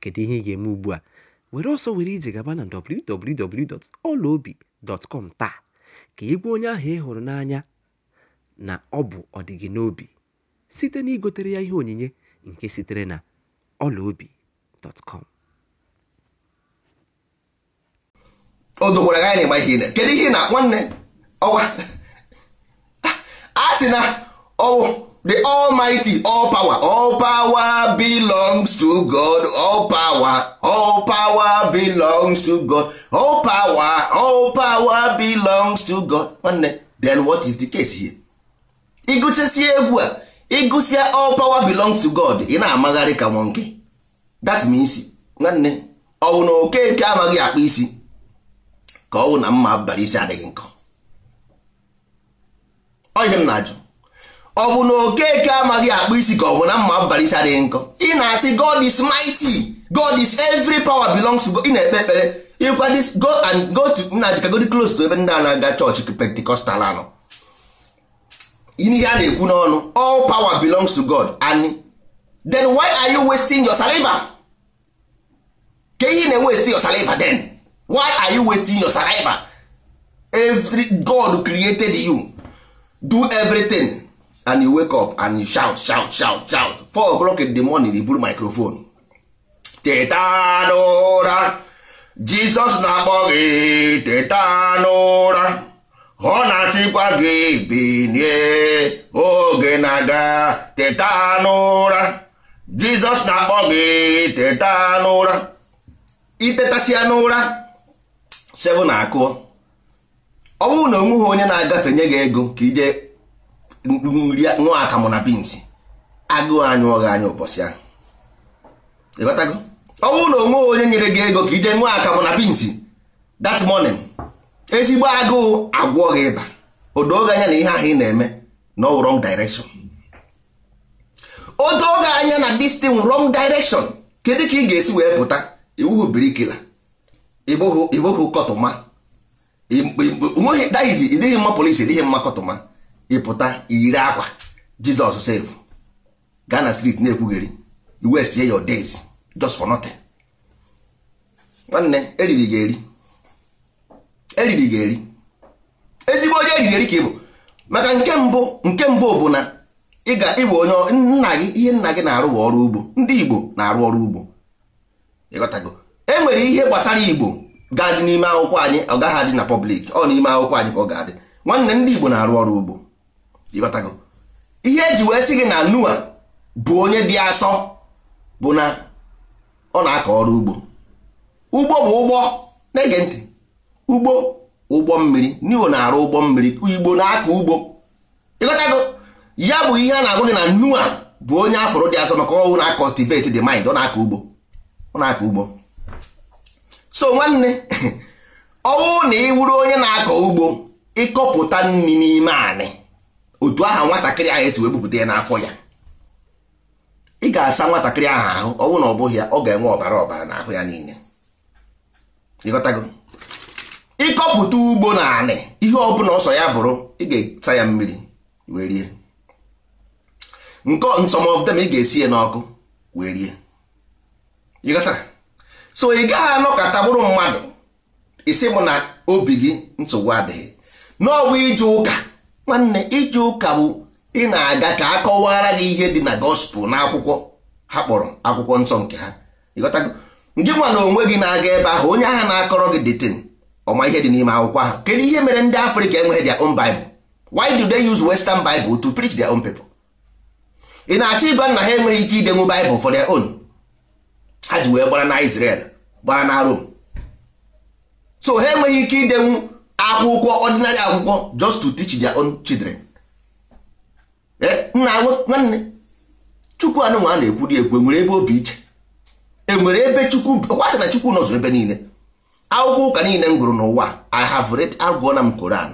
Kedu ihe ị ga-eme ugbu a? were ọsọ were ije gaba na www.olaobi.com taa ka ị onye ahụ ị hụrụ n'anya na ọ bụ ọdịgị n'obi site na igotere ya ihe onyinye nke sitere na olaobi.com o dokwara anyị na-ịgba ihe kedu ihe na nwanne ọwa a sị na ọwụ the almighty all power all power belongs to god all power all power belongs to god all power all power belongs to god nwanne then what is the case here ịgụchesie egwu a ịgụsia all power belongs to god ị na-amagharị ka nke that means nwanne ọwụ na okeke amaghị akpa isi ka ọwụ na mma abalị isi adịghị nkọ ọhịa m na-ajụ ọ bụ na okeke amaghị akpụ isi ka ọ bụ na mma mbalisi adịghị nkọ ị na-asị god is mighty god is every power belongs to god ị na-ekpe ekpere ịkwa go and go to nna godi close to ebe ndị a na-aga chọọchị pentikọstal anọ ihe a na-ekwu n'ọnụ all power belongs to god and then why are you wasting your saliva ka ihe na-waste your saliva then why are you wasting your saliva every god created you do everything and you wake up and you shout shout shout shout four o'clock in the morning you buru microphone teta n'ụra jizọs na-akpọ gị teta n'ụra ọ na achịkwa gị binie oge na-aga teta n'ụra jizọs na-akpọ gị teta n'ụra itetasia n'ụra seven akụọ ọ bụrụ na onweghị onye na-agafe nye gị ego ka ije nri nwa akamụ na bins agụụ anyị ọghị anyị ụbọchị ahụ ịghọtago ọ bụrụ na onwe onye nyere gị ego ka ije nwa akamụ na bins that morning ezigbo agụụ agwọ gị ịba odoge anya na ihe ahụ ị na-eme na ọ wrong direction oge anya na this thing wrong direction kedu ka ị ga-esi wee pụta iwuhu birikila ịbụghị kọtụma nweghị dịghị mma polisi dịghị mma kọtụma ịpụta iyiri akwa jizọs sef gaa na street na-ekwugheri west waste your days just for nothing nwanne eriri ga eri eriri ga eri ezigbo onye eriri eri ka ịbụ maka nke mbụ nke mbụ bụ na ị ịbụ onye nna gị ihe nna gị na-arụ ọrụ ugbo ndị igbo na-arụ ọrụ ugbo ịghọtago e nwere ihe gbasara igbo ga-adị n'ime akwụkwọ anyị ọ gaghị adị na pọblik ọ n'ime akwụkwọ anyị ka ọ ga-adị nwanne ndị igbo na-arụ ọrụ ugbo ịghọtago ihe eji wee sị gị na Noa bụ onye dị asọ bụ na ọ na-akọ ọrụ ugbo ugbo bụ ụgbọ na-ege ntị ugbo ụgbọ mmiri Noa na-arụ ụgbọ mmiri igbo na-akọ ugbo ịghọtago ya bụ ihe a na-agụ gị na Noa bụ onye afọrọ dị asọ maka ọhụụ na-akọtivate akọ dị mind ọ na-akọ ugbo ọ na-akọ ugbo so nwanne ọwụ na ị wụrụ onye na-akọ ugbo ịkọpụta nri n'ime anị otu aha nwatakịrị ahụ esi wee bupụta ya n'afọ ya ị ga-asa nwatakịrị ahụ ahụ ọ bụrụ na ọ bụghị ya ọ ga-enwe ọbara ọbara n'ahụ ya niile ịghọtago ịkọpụta ugbo na anị ihe ọbụla ọsọ ya bụrụ ị ga-esa ya mmiri wee rie nke nsọmọvdem ị ga-esi ya n'ọkụ wee rie ịghọtara so ị gaghị anọkọta bụrụ mmadụ isi mụ na obi gị nsogbu adịghị n'ọbụ ije ụka nwanne ije ụka bụ ị na-aga ka a kọwara gị ihe dị na gospel na akwụkwọ ha kpọrọ akwụkwọ nsọ nke ha ịghọtago ndị nwa na onwe gị na-aga ebe ahụ onye agha na-akọrọ gị detin ọma ihe dị n'ime akwụkwọ ahụ kedu ihe mere ndị afrịka enweghị their own bible why do they use western bible to preach their own people ị na-achọ ịgwa na ha enweghị ike idenwu bible for their own ha ji wee gbara na Israel gbara na Rome so ha enweghị ike idenwu akwụkwọ ọdịnarị akwụkwọ just to teach their own children eh, nna nwanne chukwu anụnwa a na dị ekwu enwere ebe obi iche enwere ebe chukwu kwasị na chukwu nọzọ ebe niile akwụkwọ ụka niile m gụrụ n'ụwa i have read agụọ na m koran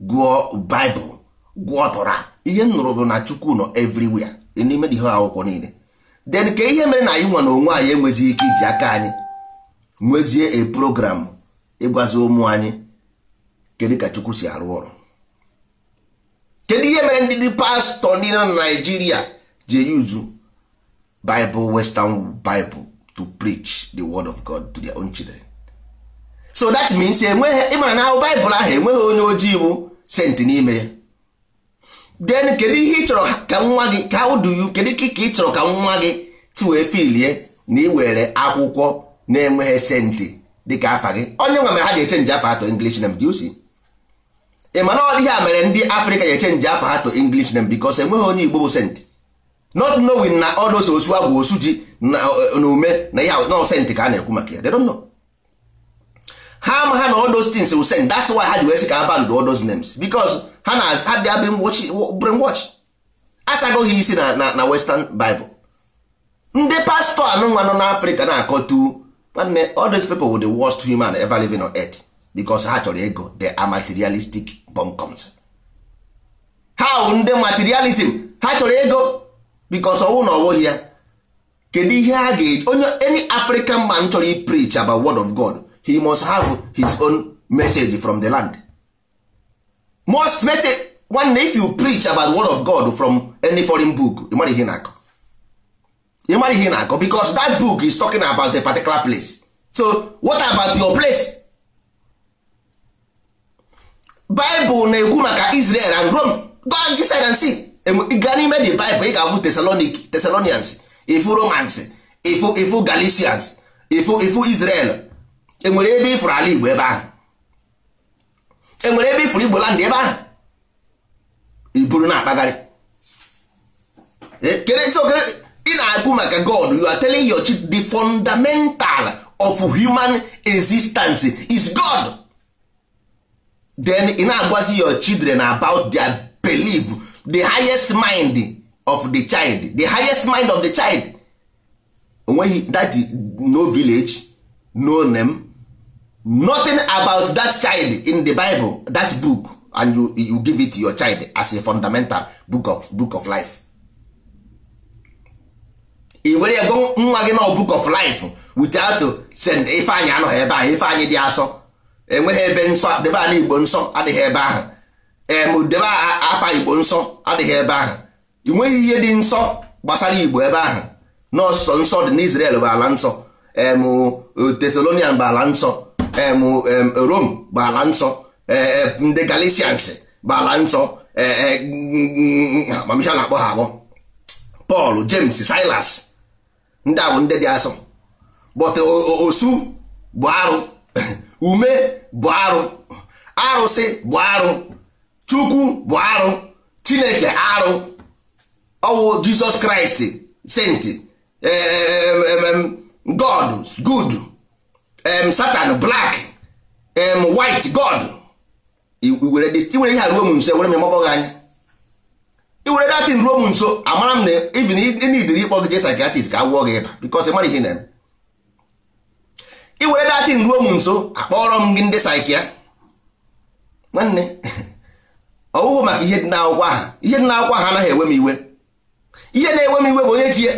gụọ baịbụl gụọ tọra ihe m nụrụ bụ na chukwu nọ everywhere n'ime ihe akwụkwọ niile then ka ihe mere na anyị nwa na onwe anyị enwezighị ike iji aka anyị nwezie a program ịgwazi ụmụ anyị kedu ka chukwu si arụ ọrụ kedu ihe mere ndị pastọ ndị na naijiria ji eyuzu bible western bible to preach the word of god to their own children so that means enweghị ịmara na baịbụl ahụ enweghị onye ojii bụ senti n'ime ya then kedu ihe ị chọrọ ka nwa gị ka how do you kedu ka ị chọrọ ka nwa gị ti wee filie na iwere akwụkwọ na-enweghị senti dịka afa gị onye nwe mere ha ga-echenji afa atọ english name do you see ị mana ọ dịghị a mere ndị afrịka ya echenji afọ ha to english name because enweghị onye igbo bụ sent not knowing na ọ ọdosa osu abụ osu ji na ume na ya na senti ka a na-ekwu maka ya they don't know ha ama ha na all those things will send that's why ha ji wee sị ka abandụ all those names because ha na ha dị abin watch bring watch asagoghị isi na na western bible ndị pastọ anụnwa nọ n'afrịka na-akọtu nwanne all those people were the worst human ever living on earth because ha chọrọ ego they are materialistic comcoms how ndị materialism ha chọrọ ego because ọnwụ na ọwụghị ya kedu ihe ha ga-eji onye any african man chọrọ i preach about word of god he must have his own message from the land most message one if you preach about word of god from any foreign book ịmara ihe na-akọ ịmara ihe na-akọ because that book is talking about a particular place so what about your place baịbụl na-ekwu maka Israel and Rome gị side see gaa n'ime the baịbụl ị ga-abụ Thessalonic ifu Romans ifu ifu Galatians ifu ifu Israel enwere ebe ifuru ala Igbo ebe ahụ enwere ebe ifuru Igbo land ebe ahụ iburu na-akpagharị e, ị na-ekwu maka God you are telling your the fundamental of human existence is God then ị na-agwazi your children about their belief the highest mind of the child the highest mind of the child onweghị that no village no name nothing about that child in the bible that book and you, you give it to your child as a fundamental book of, book of life ị were ego nwa gị book of life without send ifeanyi anọghị ebe ife ifeanyị dị asọ enweghị ebe nsọ debe igbo nsọ adịghị ebe ahụ em debe afa igbo nsọ adịghị ebe ahụ ị ihe dị nsọ gbasara igbo ebe ahụ nọọsọ nsọ dị n'Israel bụ ala nsọ em bụ ala nsọ em Rome bụ ala nsọ e, e, ndị Galatians bụ ala nsọ amamihe e, na-akpọ ha abụọ Paul James Silas ndị a ndị dị asọ osu bụ arụ ume bụ arụ arụsị bụ arụ chukwu bụ arụ chineke arụ ọwụ jizọs kraịst senti eh, eh, eh, god good satan black white god iwere ihe a ruo m nso ewere m mọbọghị anya iwere datin ruo m nso amara m na even ị na idiri ịkpọ gị jee psychiatrist ka agwụọ gị ịba because ị mara ihe na-eme i were datin ruo m nso akpọrọ m gị ndị saịkịa nwanne ọ bụghị maka ihe dị n'akwụkwọ ha ihe dị n'akwụkwọ ha anaghị ewe m iwe ihe na-ewe m iwe bụ onye ji ya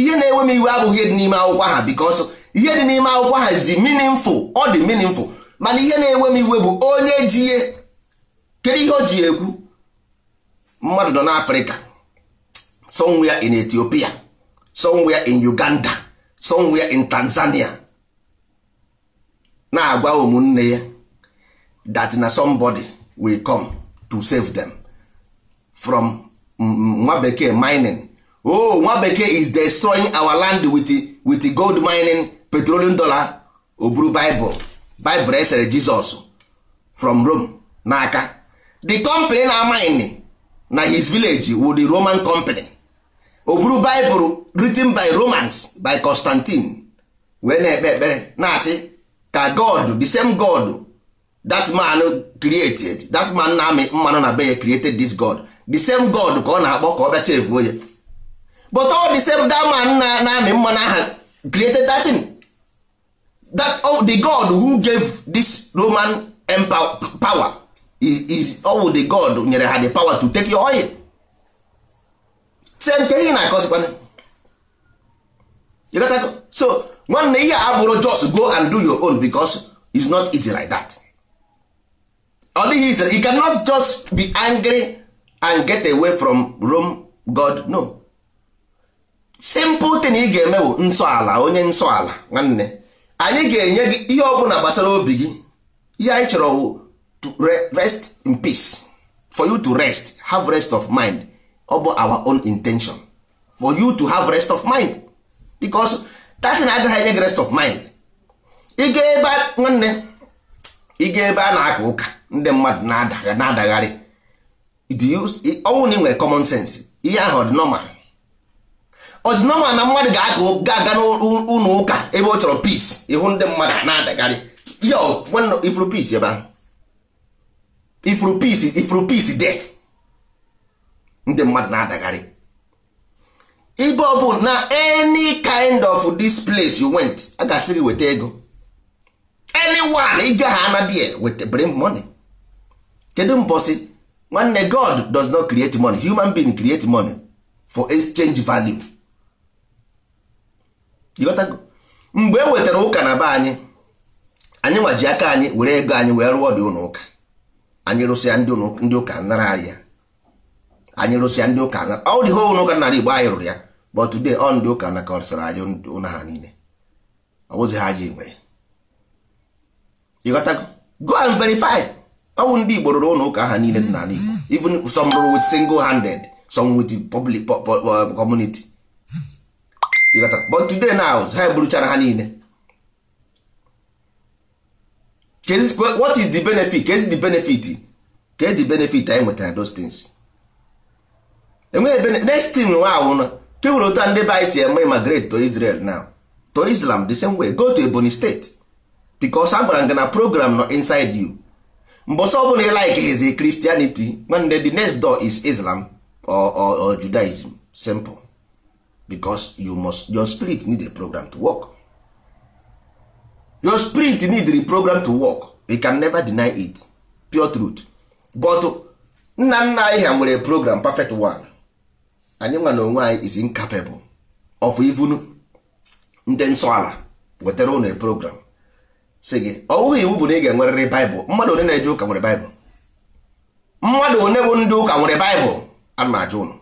ihe na-ewe m iwe abụghị ihe dị n'ime akwụkwọ ha because ihe dị n'ime akwụkwọ ha zi meaningful ọ dị meaningful mana ihe na-ewe m iwe bụ onye ji ya kedu ihe o ji ekwu mmadụ nọ n'afrịka somewhere in ethiopia somewhere in uganda somewhere in tanzania na-agwa ụmụnne ya that na somebody will come to save them from nwa bekee mining oh nwa bekee is destroying our land with, with gold mining petroleum dollar oburu bible bible esere jesus from rome n'aka the company na mining na his village wo the roman company oburu buru written by romans by constantine wee na-ekpe ekpere na-asị ka god the same god that man created that man na-amị mmanụ na be ya created this god the same god ka ọ na-akpọ ka ọ bịa save onye but all the same that man na-amị mmanụ aha created that thing that oh, the god who gave this roman empire power is, is all the god nyere ha the power to take your oil se nke ihe na-akọzikwana you got to so nwanne ihe abụrụ just go and do your own because it's not easy like that ọ dịghị easy you cannot just be angry and get away from Rome God no simple thing ị ga-eme bụ nsọ ala onye nsọ ala nwanne anyị ga-enye gị ihe ọbụla gbasara obi gị ihe anyị chọrọ to rest in peace for you to rest have rest of mind ọ bụ our own intention for you to have rest of mind because 30 na agaghị enye gị rest of mind ịga ebe nwanne ịga ebe a na-aka ụka ndị mmadụ na-adagharị ọnwụ na nwere common sense ihe ahụ ọ dị ọ dị na mmadụ ga-aga n'ụlọ ụka ebe ọ chọrọ peace ịhụ ndị mmadụ na-adagharị ifuru peace ebe ahụ ifuru peace ifuru peace de ndị mmadụ na-adagharị ibe ọ bụ na any kind of this place you went a ga-asị gị weta ego anyone ije ha anadie weta bring money kedu mbọsị nwanne god does not create money human being create money for exchange value mgbe e wetara ụka na be anyị anyị nwaji aka anyị were ego anyị wee rụọ dị ụlọ ụka anyị rụsịa ndị ụka nara ya anyị lụsịa ndị ụka na ọ dị hol ụka nara igbo anyị rụrụ ya but today ọ ndị ụka na kọrịsịrị anyị ụna ha niile ọ bụzi ha ji nwe ịghọta go and verify ọwụ ndị igbo rụrụ ụlọ ụka ha niile dị n'ala igbo even some rụrụ with single handed some with public uh, community ịghọta but today now ha eburuchara ha niile what is the benefit ka ezi the benefit ka ezi the benefit anyị nwetara those things enweghị ebe next thing nwa awụna ke were otu ndị be anyị si eme immigrate to Israel now to Islam the same way go to Ebonyi State because a gwara program nọ inside you mgbe ọsọ ọbụla ị like his Christianity nwanne the next door is Islam or, or, or Judaism simple because you must your spirit need a program to work your spirit need a program to work you can never deny it pure truth but nna nna anyị ha nwere program perfect one anyị nwa na onwe anyị is incapable of even ndị nsọ ala wetara ụlọ program si gị ọ bụghị iwu bụ na ị ga-enwerịrị baịbụl mmadụ one na-eje ụka nwere baịbụl mmadụ one bụ ndị ụka nwere baịbụl ana m ajụ ụnụ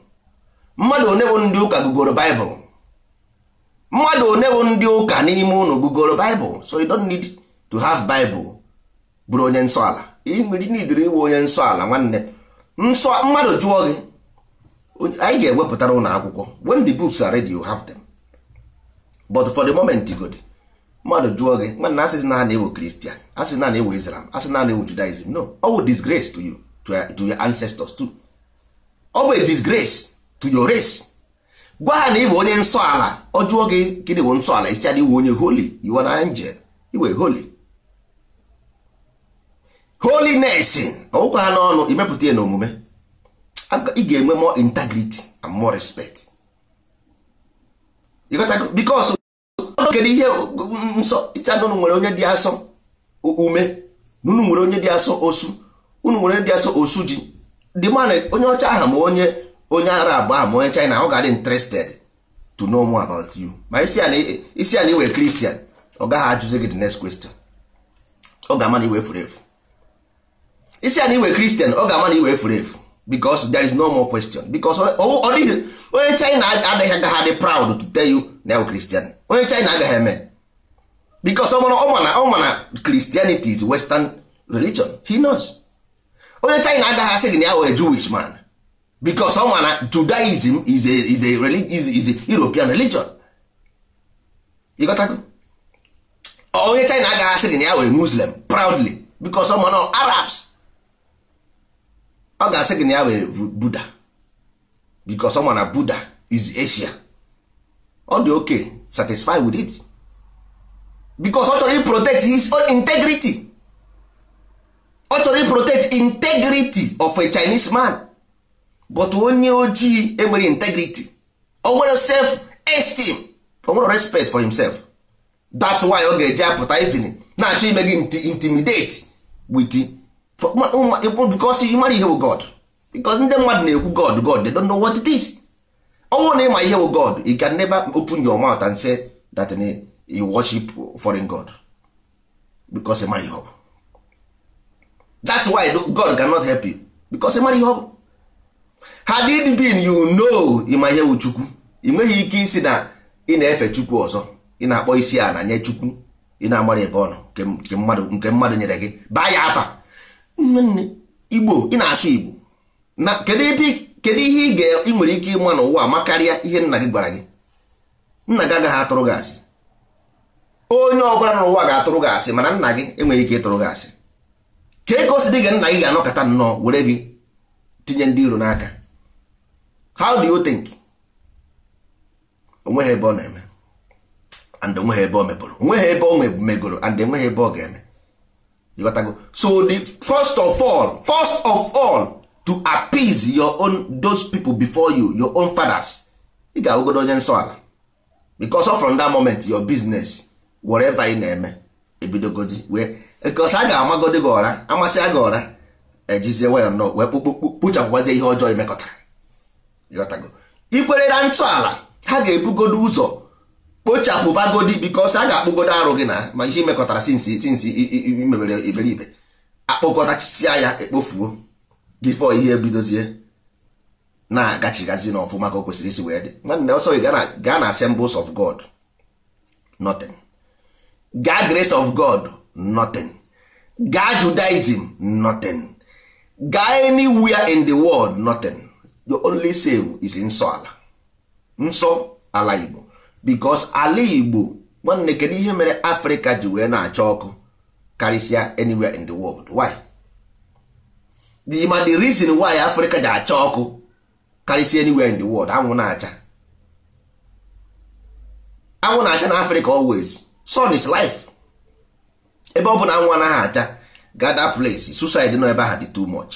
mmadụ one bụ ndị ụka gugoro baịbụl mmadụ one bụ ndị ụka n'ime ụlọ gugoro baịbụl so you don't need to have baịbụl bụrụ onye nsọ ala ị nwere idiri ịbụ onye nsọ ala nwanne nsọ mmadụ jụọ gị anyị ga-ewepụtara ụlọ akwụkwọ when the books are ready you have them but for the moment god mmadụ jụọ gị nwanna asịsị na ha na kristian asị na na-ewu islam asị na na judaism no ọ bụ disgrace to you to, to your ancestors too ọ bụ disgrace to your race gwa ha na ịbụ onye nsọ ala ọ jụọ gị gịnị wụ nsọ ala isiadị iwu onye holy you are an angel iwe holy holiness ọgwụkwa ha n'ọnụ imepụta ya na omume ị ga-enwe more integrity and more respect because kedu ihe nsọ ịcha unu nwere onye dị asọ ume na unu nwere onye dị asọ osu unu nwere dị asọ osu ji dị mana onye ọcha aha ma onye onye ara arab ahụ ma onye china ọ ga-adị interested to know more about you ma isi ala iwe kristian ọ gaghị ajụzi gị the next question ọ ga-ama na iwe furu efu isi ala iwe kristian ọ ga-ama na iwe furu efu because there is no more question because ọ dịghị onye china adịghị agaghị dị proud to tell you na christian onye china agaghị eme because ọ ma na christianity is western religion he knows onye china agaghị asị gị na ya jewish man because ọ na judaism is a, is a, is a, is a european religion onye china agaghị asị gị na ya wee muslim proudly because ọ na arabs ọ ga-asị gị na ya wee buda because ọma na buda is asia ọ dị okay satisfy with it because ọ chọrọ protect his own integrity ọ chọrọ protect integrity of a chinese man but onye ojii enwere integrity o nwere self esteem o nwere respect for himself that's why ọ ga-eji apụta evening na-achọ ime gị intimidate with Oh, because ị mara ihe god because ndị mmadụ na-ekwu god god they don't know what it is ọnwụ na ịma ihe wụ god you can never open your mouth and say that eh, you worship foreign god because ị mara ihe ọbụ that's why god cannot help you because ị mara ihe ọbụ had it been you know ịma ihe wụ chukwu ị nweghị ike isi na ị na-efe chukwu ọzọ ị na-akpọ isi na nye chukwu ị na-amara ebe ọ nọ nke mmadụ nyere gị baa ya afa nne igbo ị na-asụ igbo na kedu ihe ị nwere ike ịma n'ụwa ma karịa ihe nna gị gwara gị nna gị agaghị atụrụ gị asị onye ọbụla n'ụwa ga-atụrụ gị asị mana nna gị enweghị ike ịtụrụ gị asị ka ego si dị gị nna gị ga-anọkọta nnọọ were gị tinye ndị iro n'aka how do you think onweghị ebe ọ na-eme and onweghị ebe o mepụrụ onweghị ebe ọ megoro and enweghị ebe ọ ga-eme ịghọtago so the first of all first of all to appease your own those people before you your own fathers ị ga-awụgodo onye nsọ ala because from that moment your business whatever ị na-eme ebidogozi wee a ga-amagodi gị ọra amasị gị ọra ejizie nwayọ nnọọ wee kpuchapụgbazie ihe ọjọọ imekọtara ịghọtago ikwere na ntọala ha ga-ebugodo ụzọ kpochapụ bagodi bikos a ga-akpụgodo arụ gị na ma ihe imekọtara sinsi sinsi imebere iberibe akpụkọtasia ya ekpofuo bifo ihe ebidozie na-agachigazi na ọfụma ka o kwesịrị isi wee dị nwanne ọsọ gị gaa na assembles of god nothing ga grace of god nothing ga judaism notin ga anywhere in the world nothing the only save is nsọ ala nsọ ala igbo bikos ala igbo nwanne kedu ihe mere afrịka ji wee na-acha ọkụ karịsịa anywhere in the world why the ma the reason why afrịka ji acha ọkụ karịsịa anywhere in the world anwụ na-acha anwụ na-acha na afrịka always sun is life ebe ọ bụ na anwụ anaghị acha gather place suicide nọ ebe ahụ dị too much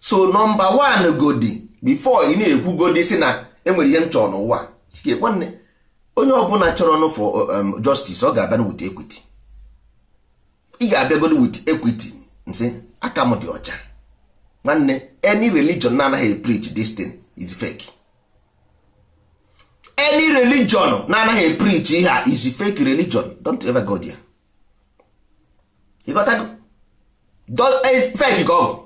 so number one godi before ị na-ekwu godi si na enwere ihe m chọrọ n'ụwa nwanne onye ọbụla chọrọ nụ for uh, um, justice ọ ga-abịa with ekwiti ị ga-abịagoro wit ekwiti nsị aka m dị ọcha nwanne any religion na-anaghị preach this thing is fake any religion na-anaghị preach ihe a is fake religion don't ever go there ịghọtago eh, fake ka ọ bụ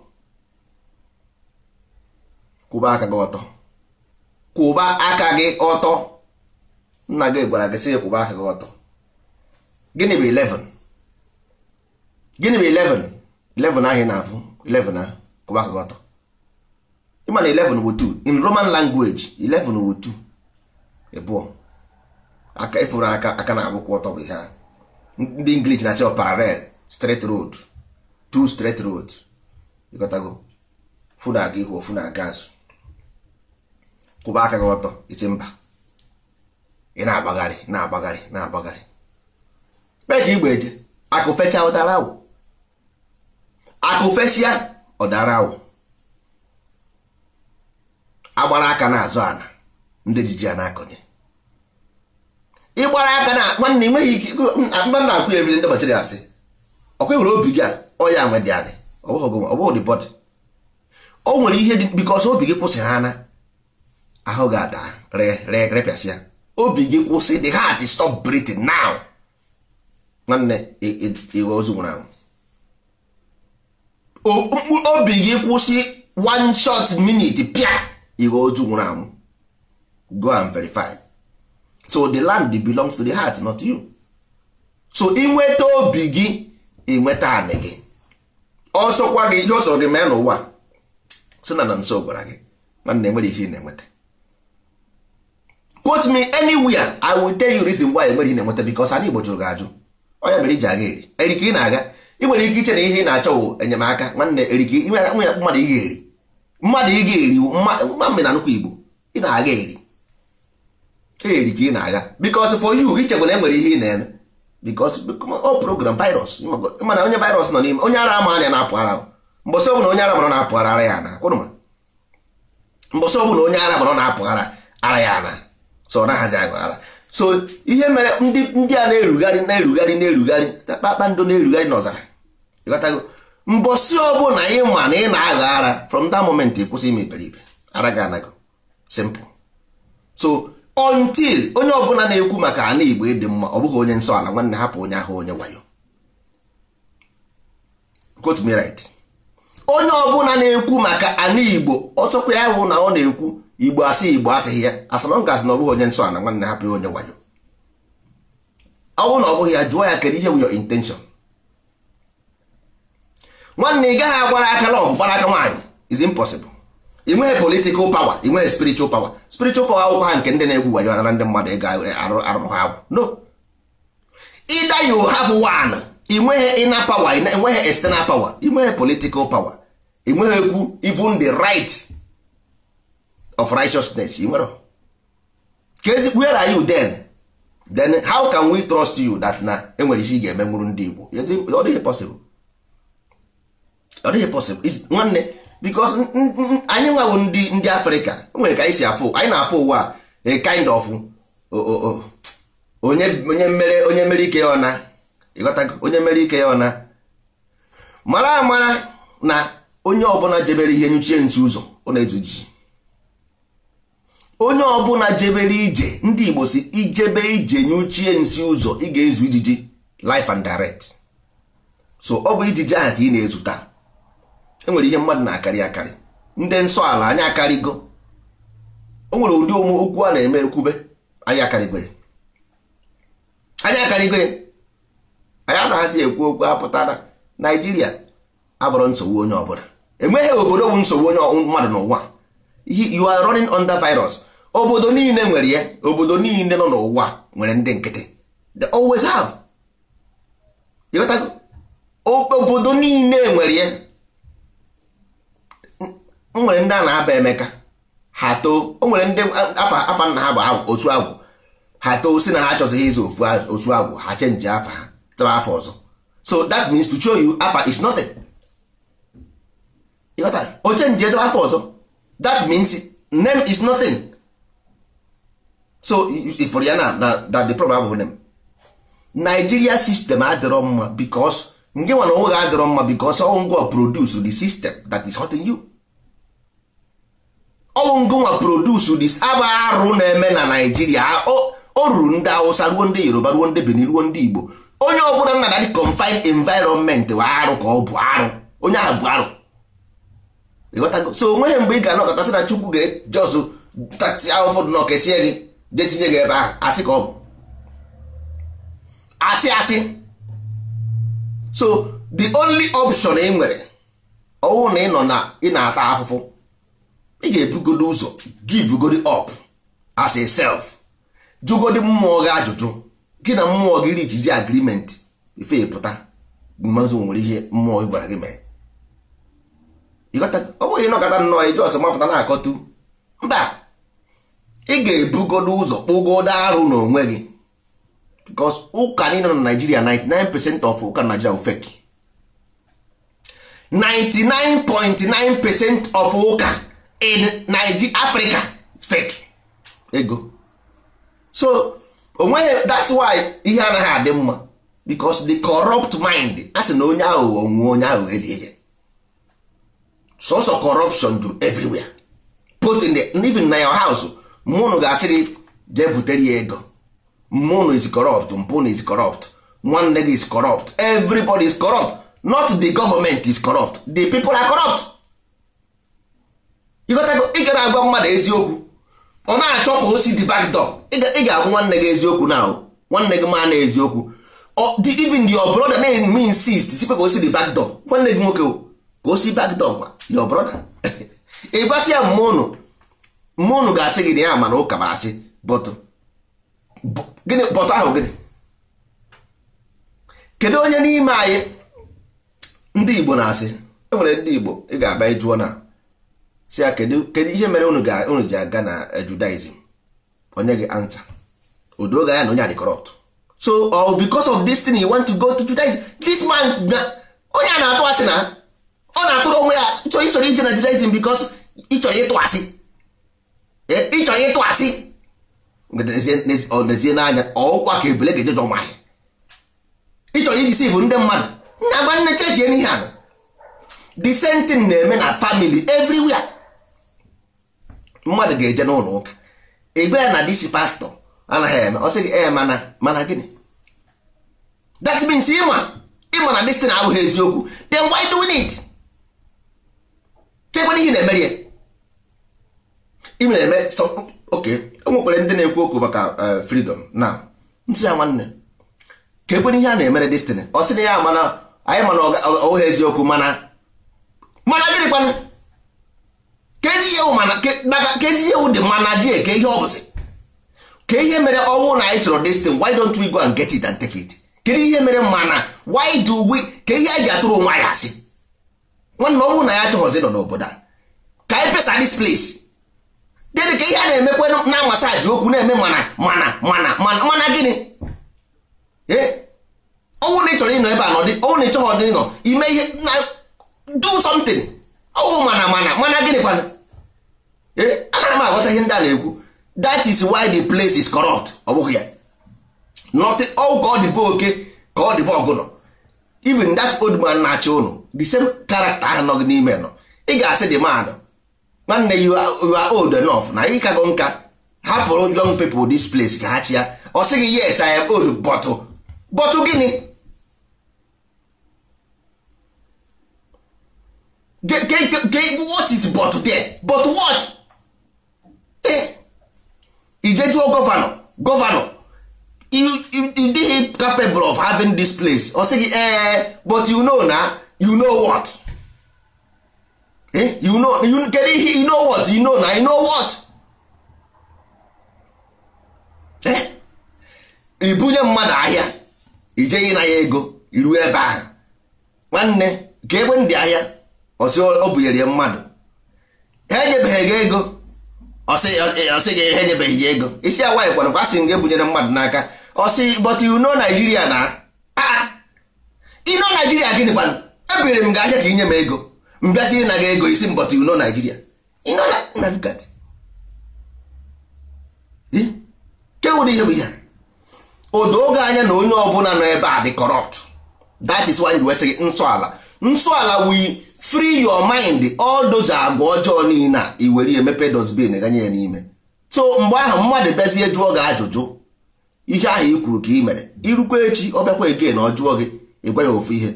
kwụba aka gị ọtọ kwụba aka gị ọtọ nna gị gwara gị sị kwụba aka gị ọtọ gịnị bụ 11 gịnị bụ 11 11 ahị na-afụ 11 ahụ kwụba aka gị ọtọ ịma na 11 bụ 2 in roman language 11 bụ 2 ịbụọ aka ịfụrụ aka aka na-agbụkwụ ọtọ bụ ihe a ndị inglish na-asị ọ parallel straight road two straight road ịgotago fụ na aga ihu ofu na aga azụ kwụba aka gị ọtọ isi mba ị na-agbagharị na-agbagharị na-agbagharị mee ka igbe eje akụfecha ụdara awụ akụfesịa ọdara awụ agbara aka na-azụ ana ndị ejiji a na-akọnye ịgbara aka na nwanne nweghị ike akpa na-akwụ ya ebiri ndị bachiri asị ọkwa nwere obi gị ọya nwe dị anyị ọ bụghị dị bọdị o nwere ihe dị bikọs obi gị kwụsị ha na ahụ ga-ada repịasịa obi gị kwụsị the heart stop breathing now nwanne iwe ozu nwụrụ anwụ obi gị kwụsị one short minute pịa iwe ozu nwụrụ anwụ go and verify so the land belongs to the heart not you so inweta obi gị inweta anị gị ọsọkwa gị ihe ọ sọrọ gị mee n'ụwa sị na na nso gwara gị nwanne nwere ihe ị na-enweta quote me anywhere i will tell you reason why egbere ị na-enweta because anyị Igbo jụrụ gị ajụ onye mere iji aga eri erike ị na-aga ị nwere ike iche na ihe ị na-achọ wụ enyemaka nwanne erike mmadụ ị ga-eri mmadụ ị ga-eri ma mbe na nnukwu Igbo ị na-aga eri eri ka ị na-aga because for you ichekwa na enwere ihe ị na-eme because o program virus mana onye virus nọ n'ime onye ara ama anya na-apụ ara mbọsị ọbụla onye ara mara na-apụ ara ya na mbọsị ọbụla onye ara mara na-apụ ara ara ya na so ọ so ihe mere ndị a na-erugharị na-erugharị na-erugharị kpakpando na-erugharị n'ọzara ịghọtago mbọsị ọbụla ị ma na ị na-aghọ ara from that moment ịkwụsị kwụsị ime iberibe ara gị anago simple so until onye ọbụla na-ekwu maka ana igbo ịdị mma ọ bụghị onye nsọ ala nwanne hapụ onye ahụ onye wayo quote onye ọbụla na-ekwu maka ana igbo ọsọkwa ya hụ na ọ na-ekwu igbo asị igbo asịghị ya asamanga asị na ọ onye nsọ ana nwanne hapụrụ onye wayo ọ bụrụ na ọ bụghị ya jụọ ya kedu ihe bụ your intention nwanne ị gaghị agwara aka lọgụ gbara aka nwaanyị is impossible ị nweghị political power ị nweghị spiritual power spiritual power akwụkwọ ha nke ndị na-egwu wayo anara ndị mmadụ ịga arụrụ ha agwụ no ịda you have one ị nweghị ịna power ị nweghị external power ị nweghị political power ị nweghị ekwu even the right of righteousness i nwere ka ezi where are you then then how can we trust you that na enwere ihe ị ga-eme nwụrụ ndị Igbo ọ dịghị possible ọ dịghị possible nwanne because anyị nwa bụ ndị ndị Afrịka nwere ka anyị si afụ anyị na-afụ ụwa a kind of onye onye mere onye mere ike ya ọna ịghọta onye mere ike ya ọna mara amara na onye ọbụla jebere ihe nyuchie nzu ụzọ ọ na-ezu ji onye ọbụla jebere ije ndị igbo si ijebe ije nye ochie nsi ụzọ ị ga-ezu ijiji life and direct so ọ bụ ijiji ahụ ka ị na-ezuta enwere ihe mmadụ na-akarị akarị ndị nsọ ala anyị akarịgo o nwere ụdị ụmụ okwu a na-eme ekwube anyị akarịgo ya anyị akarịgo ya anyị anaghịzi ekwu okwu apụta na naijiria abụrụ nsogbu onye ọbụla enweghị obodo bụ nsogbu onye mmadụ n'ụwa you are running under virus obodo niile nwere ya obodo niile nọ n'ụwa nwere ndị nkịtị they always have ịghọtago obodo niile nwere ya nwere ndị a na-aba emeka ha too o nwere ndị afa nna ha bụ otu agwụ ha too si na ha achọzighị ịzụ ofu otu agwụ ha chenji afa ha tụwa afọ ọzọ so that means to show you afa is nothing ịghọtara o chenji ezebe afọ ọzọ that means name is nothing so ifuru ya na that the problem abụghị nem Nigeria system adịrọ mma because nge nwana onwe gị adịrọ mma because ọwụ ngwa produce the system that is hurting you ọwụ ngwa produce this aba arụ na-eme na Naijiria o ruru ndị awụsa ruo ndị Yoruba ruo ndị Benin ruo ndị Igbo onye ọbụla nna na confined environment wa arụ ka ọ bụ arụ onye ahụ bụ arụ so onweghị mgbe ị ga-anọkọtasị na Chukwu ga-ejọzụ tati ahụfọdụ na ọkesie gị jee gị ebe ahụ asị ka ọ bụ asị asị so the only option ị nwere ọwụ na ị nọ na ị na-ata afụfụ ị ga-ebugodo ụzọ givegodi up as a self jụgodi mmụọ gị ajụjụ gị na mmụọ gị rijizi agrimenti ife pụta mazụ nwere ihe mmụọ gị gwara gị mee ọ bụghị ịnọkọta nnọọ iji ọsọ mapụta na-akọtu mba ị ga-ebugodo ụzọ kpụgodo arụ n'onwe gị bikos ụka niile na naijiria 99% of ụka naijiria bụ fake 99.9% of ụka in Nigeria Africa fek ego so onweghị that's why ihe anaghị adị mma because the corrupt mind a sị na onye aghụghọ nwụọ onye aghụghọ eri so sọsọ corruption do everywhere put in the, even na your house mmụọ ga-asị gị butere ya ego mmụọ is corrupt mpụ is corrupt nwanne gị is corrupt everybody is corrupt not the government is corrupt the people are corrupt ị ga na-agwa mmadụ eziokwu ọ na-achọ ka o si the back door ị ga-agwa nwanne gị eziokwu na nwanne gị maa na eziokwu even your brother na-eme insist sikwe ka o si the back door nwanne gị nwoke ka o si back door gwa your brother ị ya mmụọ unu ga-asị gị na ya mana ụka ma asị bọtụ ahụ gịnị kedu onye n'ime anyị ndị igbo na-asị enwere ndị igbo ị ga-abịa ịjụọ na si ya kedu ihe mere unu unu ji aga na judaism onye gị anta odo ga ya na onye adị corrupt so or oh, because of this thing you want to go to judaism this man onye a na-atụ asị na ọ na-atụrụ onwe ya ịchọrọ ije na judaism because ịchọrọ ịtụ asị ịchọ ya ịtụ asị ezie n'anya ọkwa ka ebule ga-ejeje ọmahị ịchọ ya ijisi bụ ndị mmadụ na agba nne chechie n'ihe a the same thing na-eme na family everywhere mmadụ ga-eje n'ụlọ ụka ebe ya na disi pastọ anaghị eme ọ sị gị ee mana mana gịnị that means ịma ịma na destin abụghị eziokwu then why do it kekwe n'ihi na-emeri ya ị na-eme oke o nwekwara ndị na-ekwu okwu maka e, freedom na ntị ya nwanne ka ekwena ihe a na-emere destiny ọ sị na ya mana anyị mana ọha eziokwu mana mana gịnị kwana ka ezi ewu dị mana jee ka ihe ọbụzi ka ihe mere ọnwụ na anyị chọrọ destiny why don't we go and get it and take it kedu ihe mere mana why do we ka ihe anyị ji atụrụ onwe anyị asị nwanne ọnwụ na ya achọghọzi nọ n'obodo a ka anyị pesa this place gịnị ka ihe a na-emekwe na masaji okwu na-eme mana mana mana mana mana gịnị eh? ọnwụ na ị chọrọ ịnọ ebe a n'ọdị ọnwụ na ị chọghị ọdị ịnọ ime ihe na do something ọnwụ mana mana mana gịnị kwana eh? ana m aghọta ihe ndị a na-ekwu that is why the place is corrupt ọ bụghị ya not all ka ọ dịbe oke ka ọ dịbe ọgụnọ even that old man na-achị ụnụ the same character ahụ nọ gị n'ime nọ ị ga-asị dị manụ nwanne you are old enough na ị kago nka hapụrụ young people dis place ka ha chi ya ọ sịghị yes I am old bọtụ bọtụ gịnị what is bọtụ there but what ijejuo gọvanọ gọvanọ dịghị capable of having this place ọ sịghị ee but you know na you know what Eh, you know you kedu ihe you know what you know na you know what eh ibunye mmadụ ahịa ijeghị na ya ego iru ebe ahụ nwanne ka ebe ndị ahịa ọsị ọ ya mmadụ ha enyebeghị gị ego ọsị gị ha enyebeghị ya ego isi awaghị kwara kwa asị m gị ebunyere mmadụ n'aka ọsị but you know Nigeria na ino ah, Nigeria gịnị kwanụ ebiri m gị ahịa ka inye m ego mbịasị na gị ego isi mbọtụ you know naijiria you na ihe bụ ihe odo oge anya na onye ọbụla nọ ebe a dị corrupt that is why wesị gị nsọ ala nsọ ala we free your mind all those agwa ọjọọ niile a iwere emepe dosbin ganye ya n'ime so mgbe ahụ mmadụ bezie jụọ gị ajụjụ ihe ahụ i kwuru ka ị mere irukwa echi ọ bịakwa ege na ọ jụọ gị ị ya ofu ihe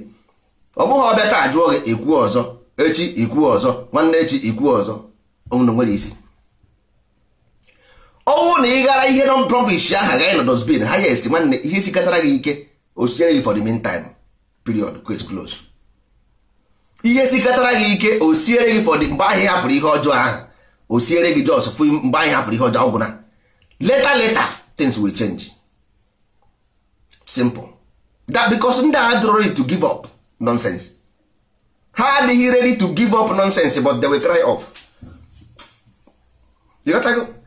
ọ bụghị ọ ajụọ taa jụọ gị ị ọzọ echi ikwu ọzọ nwanne echi ikwu ọzọ ọnwụna nwere isi ọnwụ na ị ghara ihe nọ brọvish aha gaghị na dosbin ha yes nwanne ihe sikatara gị ike osiere gị for the meantime period quit close ihe sikatara gị ike osiere gị for the mgbe ahụ hapụrụ ihe ọjọọ ahụ osiere gị jos fụ mgbe ahụ hapụrụ ihe ọjọọ ọgwụna later later things will change simple that because ndị agha dụrụ to give up nonsense ha adịghị ready to give up nonsense but they will cry off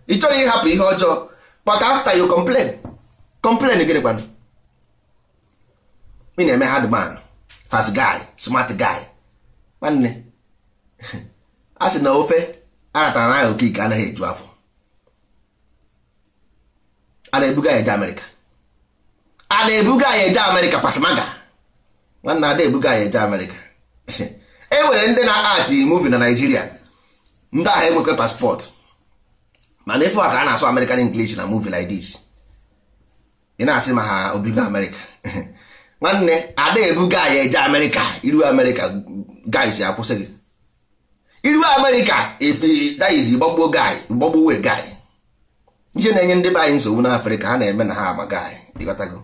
ị chọghị ịhapụ ihe ọjọọ but after you complain complain gịnị gwanụ me na-eme hard man fast guy smart guy nwanne a sị na ofe aratara na aha okike anaghị eju afọ a na-ebuga ya eje amerịka a na-ebuga ya eje amerịka pasmaga nwanne ada ebuga ya eje amerịka e nwere ndị na-ati muvi na naijiria ndị ahụ enwekwe paspọtụ mana ife a ka a na-asụ american english na muvi like this ị na-asị ma ha obigo amerịka nwanne ada ebuga ya eje amerịka iru amerịka guys akwụsị gị iru amerịka ifediz gbagbuo guy gbagbuo wee guy ije na-enye ndị be anyị nsogbu n'afrịka ha na-eme na ha ama guy ịghọtago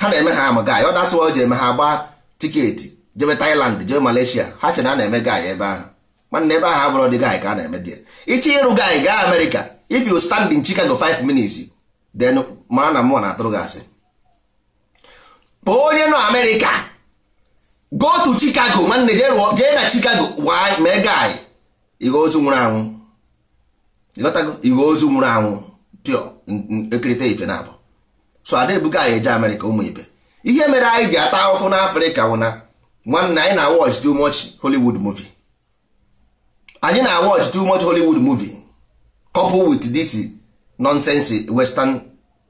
ha na-eme ha ama guy ọ dasịwa o ji eme ha gbaa tiketi jebe Thailand jebe Malaysia ha chere a na-eme gaị ebe ahụ nwanne ebe ahụ abụrụ dị gaị ka a na-eme dị iche ịrụ gaị gaa America if you stand in Chicago 5 minutes then mara na mmụọ na-atụrụ gị asị kpọọ onye nọ America go to Chicago nwanne jee na Chicago waa mee guy ighe ozu nwụrụ anwụ ighe ozu nwụrụ anwụ pịọ ekirịta ife na abụ so ada ebuga anyị eje America ụmụ ibe ihe mere anyị ji ata ahụhụ n'Africa wụna nwanne anyị na watch too much Hollywood movie anyị na watch too much Hollywood movie coupled with this nonsense western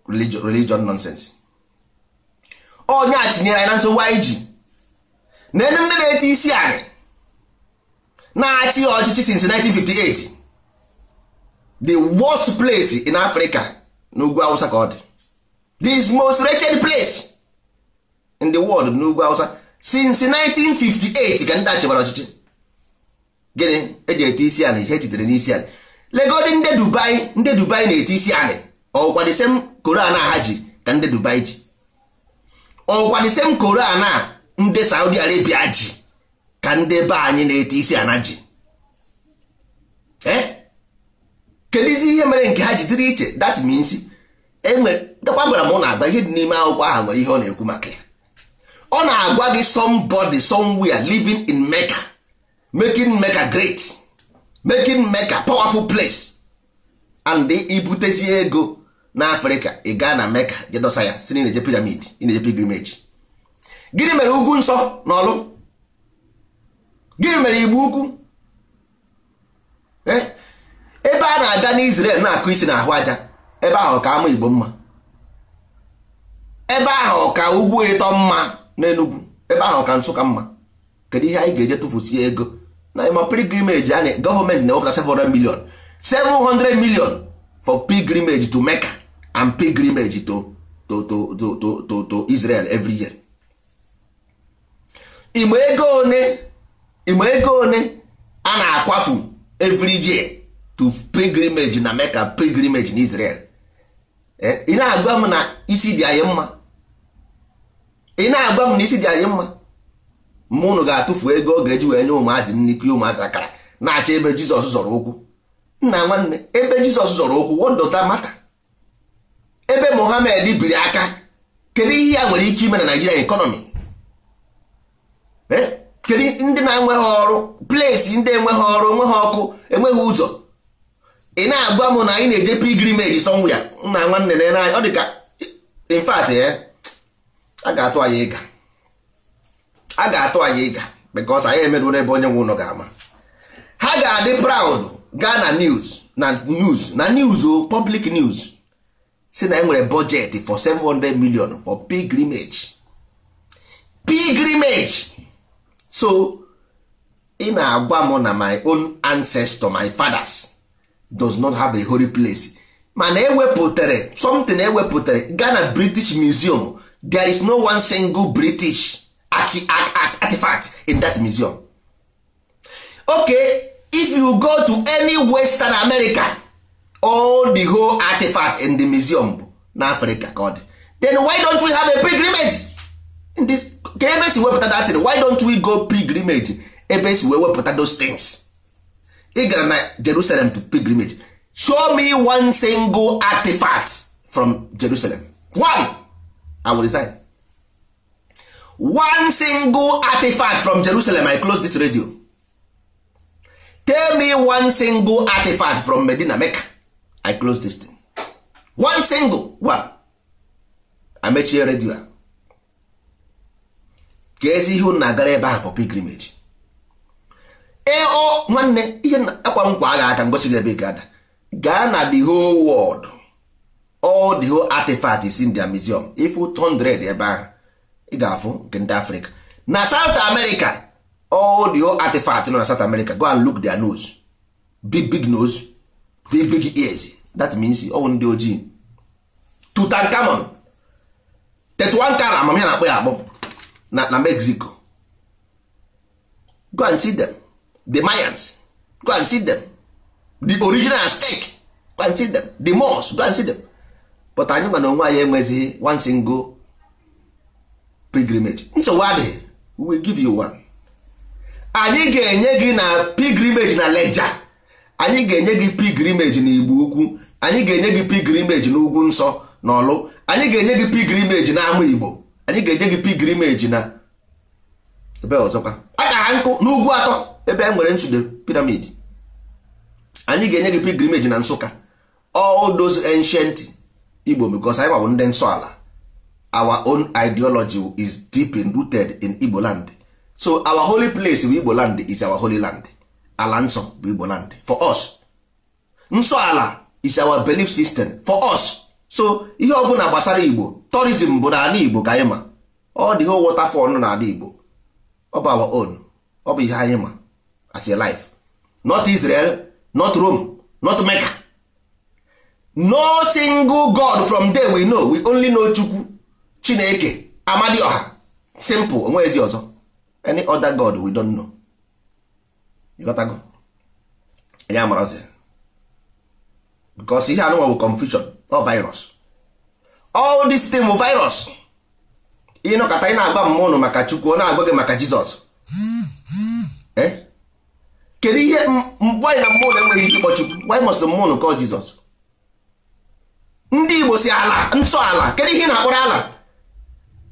religion, religion nonsense onye a tinyere anyị na nsogbu anyị ji na ndị na eti isi anyị na-achị ọchịchị since 1958 the worst place in Africa n'ugwu Hausa ka ọ dị this most wretched place in the world n'ugwu Hausa since 1958 ka ndị a chịbara ọchịchị gịnị eji ete isi anị ihe ejidere n'isi anị legodi ndị dubai ndị dubai na-ete isi anị ọkwa m same koran a ha ji ka ndị dubai ji ọkwa koran a ndị saudi arabia ji ka ndị be anyị na-ete isi ana ji eh? kedu izi ihe mere nke ha ji dịrị iche that enwe enwere gwara m na agba ihe dị n'ime akwụkwọ ahụ nwere ihe ọ na-ekwu maka ya ọ na-agwa gị somebody somewhere living in Mecca making Mecca great making Mecca powerful place and ibutezie ego n'Afrịka ị gaa na Mecca jedọsa ya si na ịna-eje piramid ịna-eje pilgrimage gịnị mere ugwu nsọ na ọlụ gịnị mere igbu ugwu eh? ebe a na-aga n'Israel na-akụ isi na ahụ aja ebe ahụ ka ama Igbo mma ebe ahụ ka ugwu ịtọ mma n'enugwu ebe ahụ ka nsụka mma kedu ihe anyị ga-eje tụfusie ego na ịma pilgrimage anyị gọọmenti na-ewepụta 700 million 700 million for pilgrimage to Mecca and pilgrimage to to to to to to Israel every year. Igbe ego one igbe ego one a na-akwafu every year to pilgrimage na Mecca pilgrimage na Israel eh, ị na-agwa m na isi dị anyị mma ị na-agba m na isi dị anyị mma mma ụnụ ga-atụfu ego ọ ga-eji wee nye ụmụazị nri pie ụmụazị akara na acha ebe jizọs zọrọ okwu nna nwanne ebe jizọs zọrọ okwu what Mata, ebe mohamed biri aka kedu ihe ya nwere ike ime na naijiria ekọnọmi eh? kedu ndị na-enweghị ọrụ plesi ndị enweghị ọrụ enweghị ọkụ enweghị ụzọ ị na-agwa m na anyị na-eje pilgrimage somewhere nna nwanne na ọ dị ka in fact eh, a ga-atụ anyị ịga a ga-atụ anyị ịga because anyị emerụ ebe onye nwe ụlọ ga-ama ha ga-adị proud gaa na news na news na news o public news si na enwere budget for 700 million for pilgrimage pilgrimage so ị na-agwa m na my own ancestor my fathers does not have a holy place mana ewepụtara something ewepụtara gaa na British Museum there is no one single british artifact in that museum okay if you go to any western america all the whole artifact in the museum na africa god then why don't we have a pilgrimage in this ka ebe si wepụta that thing why don't we go pilgrimage ebe si wee wepụta those things ị gara na jerusalem to pilgrimage show me one single artifact from jerusalem one i will resign one single artifact from jerusalem i close this radio tell me one single artifact from medina mecca i close this thing one single one amechie redio a ka ezi ihe na-agara ebe ahụ for pilgrimage ee nwanne ihe akwa nkwa agha aka ngosi ebe ga ada gaa na the whole world all the whole artifact is in their museum ifu 100 ebe ahụ ị ga-afụ nke ndị Africa na south america all the whole artifact nọ na south america go and look their nose big big nose big big ears that means ọwụ ndị ojii Tutankhamun Tetuankan amamihe na-akpọ ya akpọ na mexico go and see them the mayans go and see them the original aztec go and see them the moors go and see them but anyị ma na onwe anyị enweghịzi one single pilgrimage nsogbu adịghị we give you one anyị ga-enye gị na pilgrimage na leja anyị ga-enye gị pilgrimage na igbo ukwu anyị ga-enye gị pilgrimage na ugwu nsọ na ọlụ anyị ga-enye gị pilgrimage na ama igbo anyị ga-enye gị pilgrimage na ebe ọzọkwa aka nkụ n'ugwu atọ ebe e nwere piramid anyị ga-enye gị pilgrimage na nsụka all those ancient igbo because anyị nwawo ndị nsọ ala our own ideology is deep rooted in igbo land so our holy place bụ igbo land is our holy land ala nsọ bụ igbo land for us nsọ ala is our belief system for us so ihe ọ na gbasara igbo tourism bụ n'ala igbo ka anyị ma ọ dị ihe waterfall nọ n'ala igbo ọ bụ our own ọ bụ ihe anyị ma as a life not Israel not Rome not Mecca no single god from there we know we only know chukwu chineke ọha simple onwe ezi ọzọ any other god we don't know you got go ya marazi because ihe anụnwa bụ confusion or virus all this thing bụ virus ihe nọkọta ị na-agwa mma ụnụ maka chukwu ọ na-agwa gị maka jizọs eh? kedu ihe mgbe anyị na mmụọ na enweghị ike ịkpọ chukwu why must mmụọ ụnụ call jizọs ndị igbo si ala nsọ ala kedu ihe na-akpọrọ ala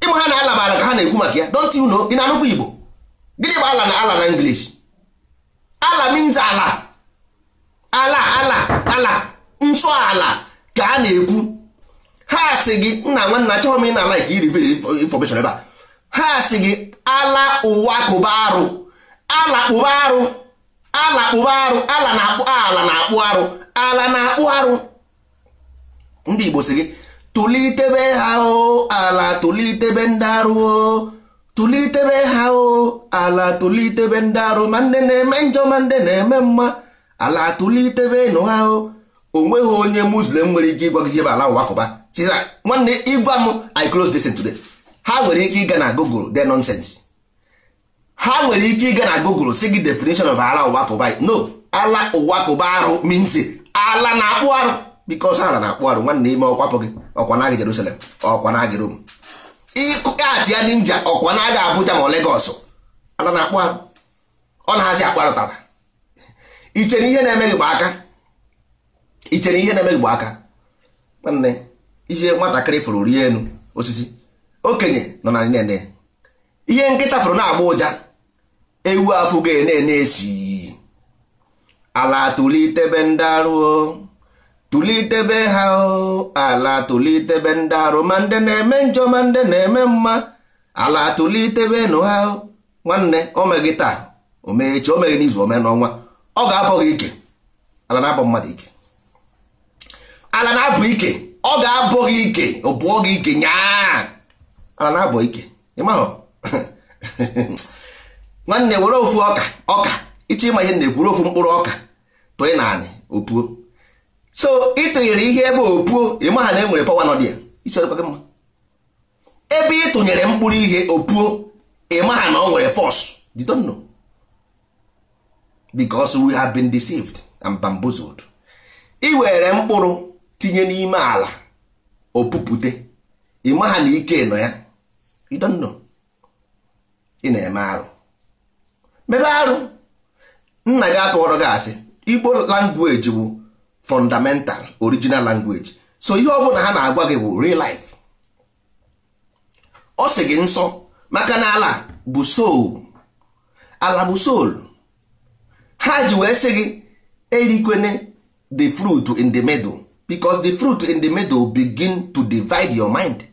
ịma ha na ala ma ala ka ha na-ekwu maka ya don't you know ị na-anụkwa igbo gịnị bụ ala na ala na english ala means ala ala ala ala nsọ ala ka a na-ekwu ha si gị nna nwanna achọghị m ị na like irivere information ebe a ha si gị ala ụwa kụba arụ ala kpụba arụ ala kpụba arụ ala na-akpụ ala na-akpụ arụ ala na-akpụ arụ ndị Igbo si gị tụlitebe ha o ala tụlitebe ndị arụ o tụlitebe ha o ala tụlitebe ndị arụ ma ndị na-eme njọ ma ndị na-eme mma ala tụlitebe nụ ha o onweghị onye muslim nwere ike ịgwa gị ihe ala ụwa kụba nwanne ịgwa m i close this today ha nwere ike ịga na google the nonsense ha nwere ike ịga na google si gị definition of ala ụwa kụba no ala ụwa kụba arụ means ala na-akpụ arụ because ha na-akpụ arụ nwanne ime ọkwapụ gị ọkwa na-agị Jerusalem ọkwa na-agị Rome ịkụkatị ya ninja ọkwa na-agị Abuja ma Lagos ana na-akpụ arụ ọ na-hazi akpụ arụ tata ichere ihe na-eme gị bụ aka ichere ihe na-eme gị bụ aka nwanne ihe nwatakịrị fụrụ rie enu osisi okenye nọ na nene ihe nkịta fụrụ na-agba ụja ewu afụ ga-ene esi ala tụlitebe ndị arụ tụlitebe ha ala tụlitebe ndị arụ ma ndị na-eme njọ ma ndị na-eme mma ala tụlitebe nụ ha nwanne omegị taa omechi omeghị n'izu ome n'ọnwa ọ ga-abọ gị ike ala na-abọ mmadụ ike ala na-abọ ike ọ ga-abọ gị ike ọ bụọ gị ike nyaa ala na-abọ ike ịmahụ nwanne were ofu ọka ọka iche ịma ihe na-ekwuru ofu mkpụrụ ọka tụọ ị naanị opuo so ịtụnyere ihe ebe opuo ịmaha na enwere pawa nọ dị ya icherekwa gị mma ebe ịtụnyere mkpụrụ ihe opuo ịmaha na ọ nwere fọs you don't know because we have been deceived and bamboozled ị were mkpụrụ tinye n'ime ala opupute ịmaha na ike nọ ya you don't know ị na-eme arụ mebe arụ nna gị atụọrọ gị asị igbo language bụ fundamental original language so ihe ọ bụla ha na-agwa gị bụ real life ọ sị gị nsọ maka na ala bụ soul ala bụ soul ha ji wee sị gị erikwene the fruit in the middle because the fruit in the middle begin to divide your mind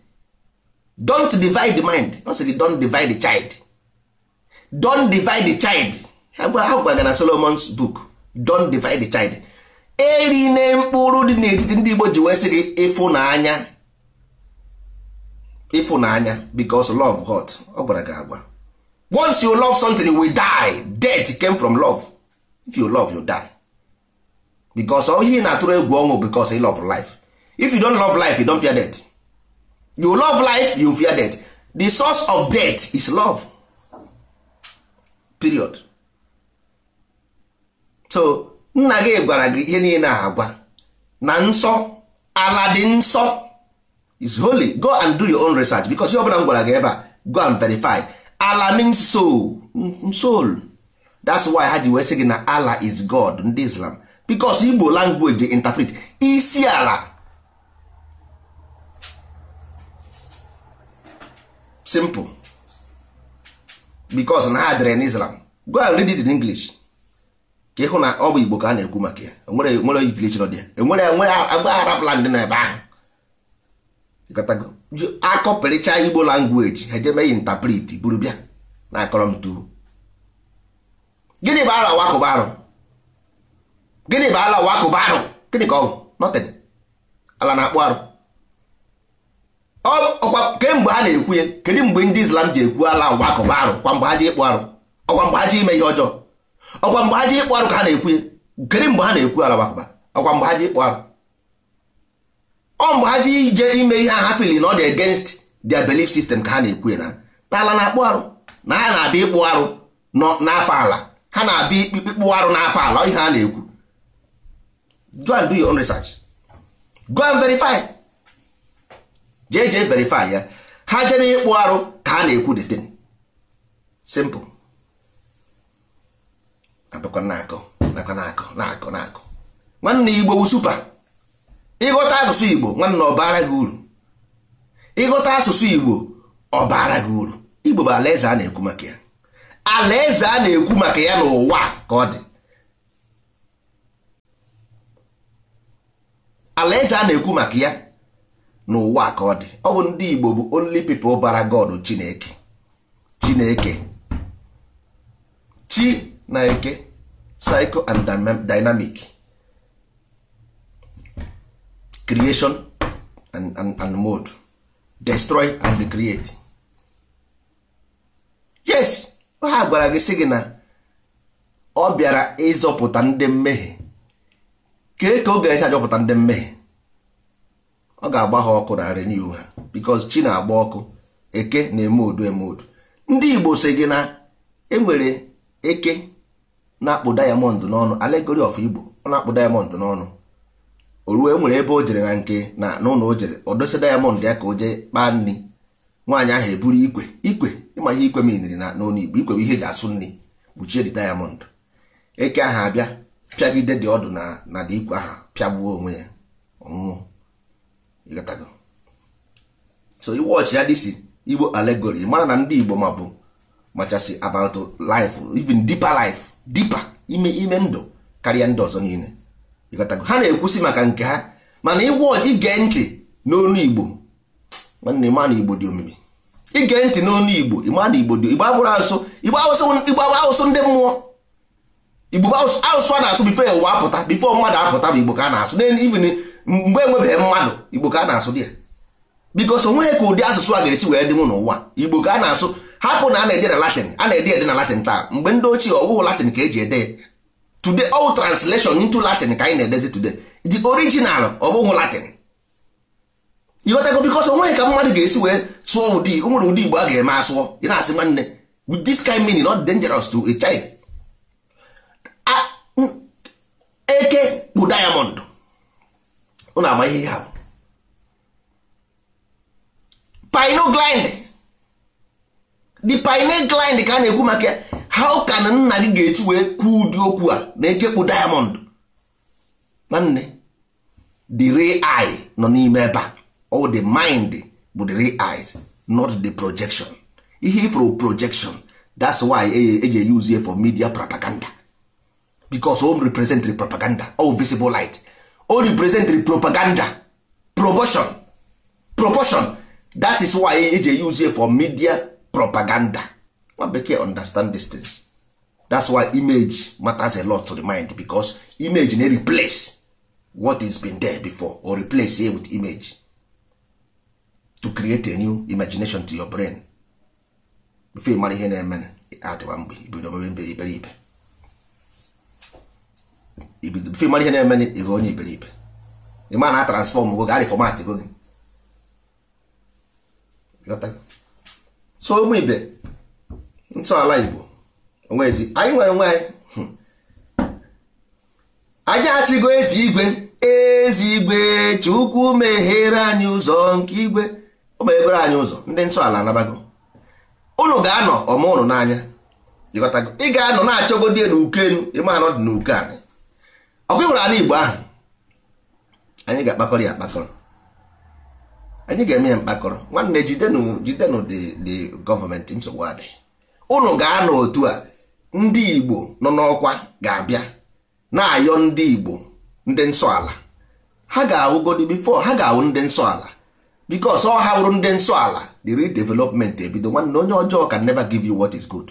don't divide the mind ọ sị gị don't divide the child don't divide the child ha gwara na Solomon's book don't divide the child eri na mkpụrụ dị n'etiti ndị Igbo ji wee sị gị ịfụnanya ịfụnanya because love hot ọ gwara gị agwa once you love something we die death came from love if you love you die because ọ ihe na-atụrụ egwu ọnwụ because you love life if you don love life you don fear death you love life you fear death the source of death is love period so nna gị gwara gị ihe niile agwa na nsọ ala dị nsọ is holy go and do your own research because ihe ọbụla m gwara gị ebe a go and verify ala means soul soul that's why ha ji wee sị gị na ala is God ndị Islam because Igbo language dey interpret isi ala simple because na ha dere n'Islam go and read it in English ka ịhụ na ọ bụ igbo ka a na-ekwu maka ya enwere nwere ikirichi dị ya enwere enwere agbaghara ndị na ebe ahụ akọpịrịcha igbo langweji ha ejebeghị ntapriti buru bịa na akọrọ m tu gịnị bụ ala wakụba arụ gịnị bụ ala wakụba arụ gịnị ka ọ bụ nothing ala na-akpụ arụ ọkwa kemgbe ha na-ekwu ya kedu mgbe ndị islam ji ekwu ala wakụba arụ kwa mgbe ha ji ịkpụ arụ ọkwa mgbe ha ji ime ihe ọjọọ ọkwa mgbe ha ji ịkpụ arụ ka ha na-ekwu gịnị mgbe ha na-ekwu alabakụba ọkwa mgbe ha ji ịkpụ arụ ọ mgbe ha ji ije ime ihe ha fili na ọ dị against their belief sistem ka ha na-ekwu na ala na-akpụ arụ na ha na-abịa ịkpụ arụ n'afọ ala ha na-abịa ịkpụ arụ n'afọ ala ihe ha na-ekwu go and do your own research go and verify jee jee verify ya ha jere ịkpụ arụ ka ha na-ekwu the thing simple abụkwa na-akọ nakwa na-akọ na-akọ na-akọ nwanne igbo bụ supa ịghọta asụsụ igbo nwanne ọbara bara gị uru ịghọta asụsụ igbo ọbara bara gị uru igbo bụ alaeze a na-ekwu maka ya alaeze a na-ekwu maka ya n'ụwa ka ọ dị alaeze a na-ekwu maka ya n'ụwa ka ọ dị ọ bụ ndị igbo bụ only people bara god chineke chineke chi na eke psycho and dynamic creation and, and, mode destroy and create yes ha gwara gị sị gị na ọ bịara ịzọpụta ndị mmehie kee ka ọ ga-esi ndị mmehie ọ ga-agba ha ọkụ narị n'ihu ha because chi na-agba ọkụ eke na-eme odu eme odu ndị Igbo sị gị na enwere eke na-akpụ dayamond n'ọnụ alegori of igbo ọ na-akpụ diamond n'ọnụ o ruo e nwere ebe o jere na nke na n'ụlọ o jere o dosa diamond ya ka o jee kpaa nri nwaanyị ahụ eburu ikwe ikwe ịma ihe ikwe miniri na n'ọnụ igbo ikwe bụ ihe eji asụ nri kpuchie dị diamond eke ahụ abịa pịagide dị ọdụ na na dị ikwe ahụ pịagbuo onwe ya ọnwụnwụ so so iwọchị ya dịsi igbo alegori mara na ndị igbo ma bụ machasị about life even deeper life dipa ime ime ndụ karịa ndị ọzọ niile ịghọtago ha na-ekwusi maka nke ha mana ịgwa ọji ige ntị n'onu igbo nwanne ma na igbo dị omimi ige ntị n'onu igbo ịma na igbo dị igbo abụrụ asụsụ igbo asụsụ ndị mmụọ igbo asụsụ a na-asụ bifo ụwa apụta bifo mmadụ apụta bụ igbo ka a na-asụ n'ivin mgbe enwebeghị mmadụ igbo ka a na-asụ dị ya bikos onweghị ka ụdị asụsụ a ga-esi wee dị dịnwu n'ụwa igbo ka a na-asụ hapụ na a na-ede na latin a na-ede ede na latin taa mgbe ndị ochie ọwụhụ latin ka eji ede today all translation into latin ka anyị na-edezi today the original ọbụghị latin ịghọtago bikos onweghị ka mmadụ ga-esi wee sụọ ụdị o nwere ụdị igbo a ga-eme asụọ ị na-asị nwanne with this kind meaning not dangerous to a child eke bụ diamond unu ama ihe ya. bụ pinogland the pineal line ka a na-ekwu maka how can nna gị ga-eji wee kwuo ụdị okwu a na-ekekpu diamond nwanne the real eye nọ n'ime ebe a all the mind bụ the real eyes not the projection ihe ifro projection that's why eji e use for media propaganda because o represent the propaganda all visible light o represent the propaganda proportion proportion that is why eji use for media propaganda nwa bekee understand these things that's why image matters a lot to the mind because image na replace what is been there before or replace it with image to create a new imagination to your brain before you marry ihe na-eme atịwa mgbe ibido mebe mbe iberibe before ị mara ihe na-eme ịghọ onye iberibe ịma na transform go gari format go gị so ụmụ ibe ntọala igbo onwezi anyị nwere onwe anyị hmm. anyị achịgo ezi igwe ezi igwe chukwu meghere anyị ụzọ nke igwe o meghere anyị ụzọ ndị ntọala anabago ụnụ ga-anọ ọma ụnụ n'anya ị ga-anọ na-achọgodi na uke enu dị n'uke anyị ọkụ ịhụrụ ala igbo ahụ anyị ga-akpakọrọ ya akpakọrọ anyị ga-eme ya mkpakọrọ nwanne jidenu jidenụ dị gọọmenti nsogbu adị ụnụ ga-anọ otu a ndị igbo nọ n'ọkwa ga-abịa na-ayọ ndị igbo ndị nsọ ala ha ga-awụgodi bifo ha ga-awụ ndị nsọ ala bikos ọ ha wụrụ ndị nsọ ala the redevelopment ebido nwanne onye ọjọọ can never give you what is good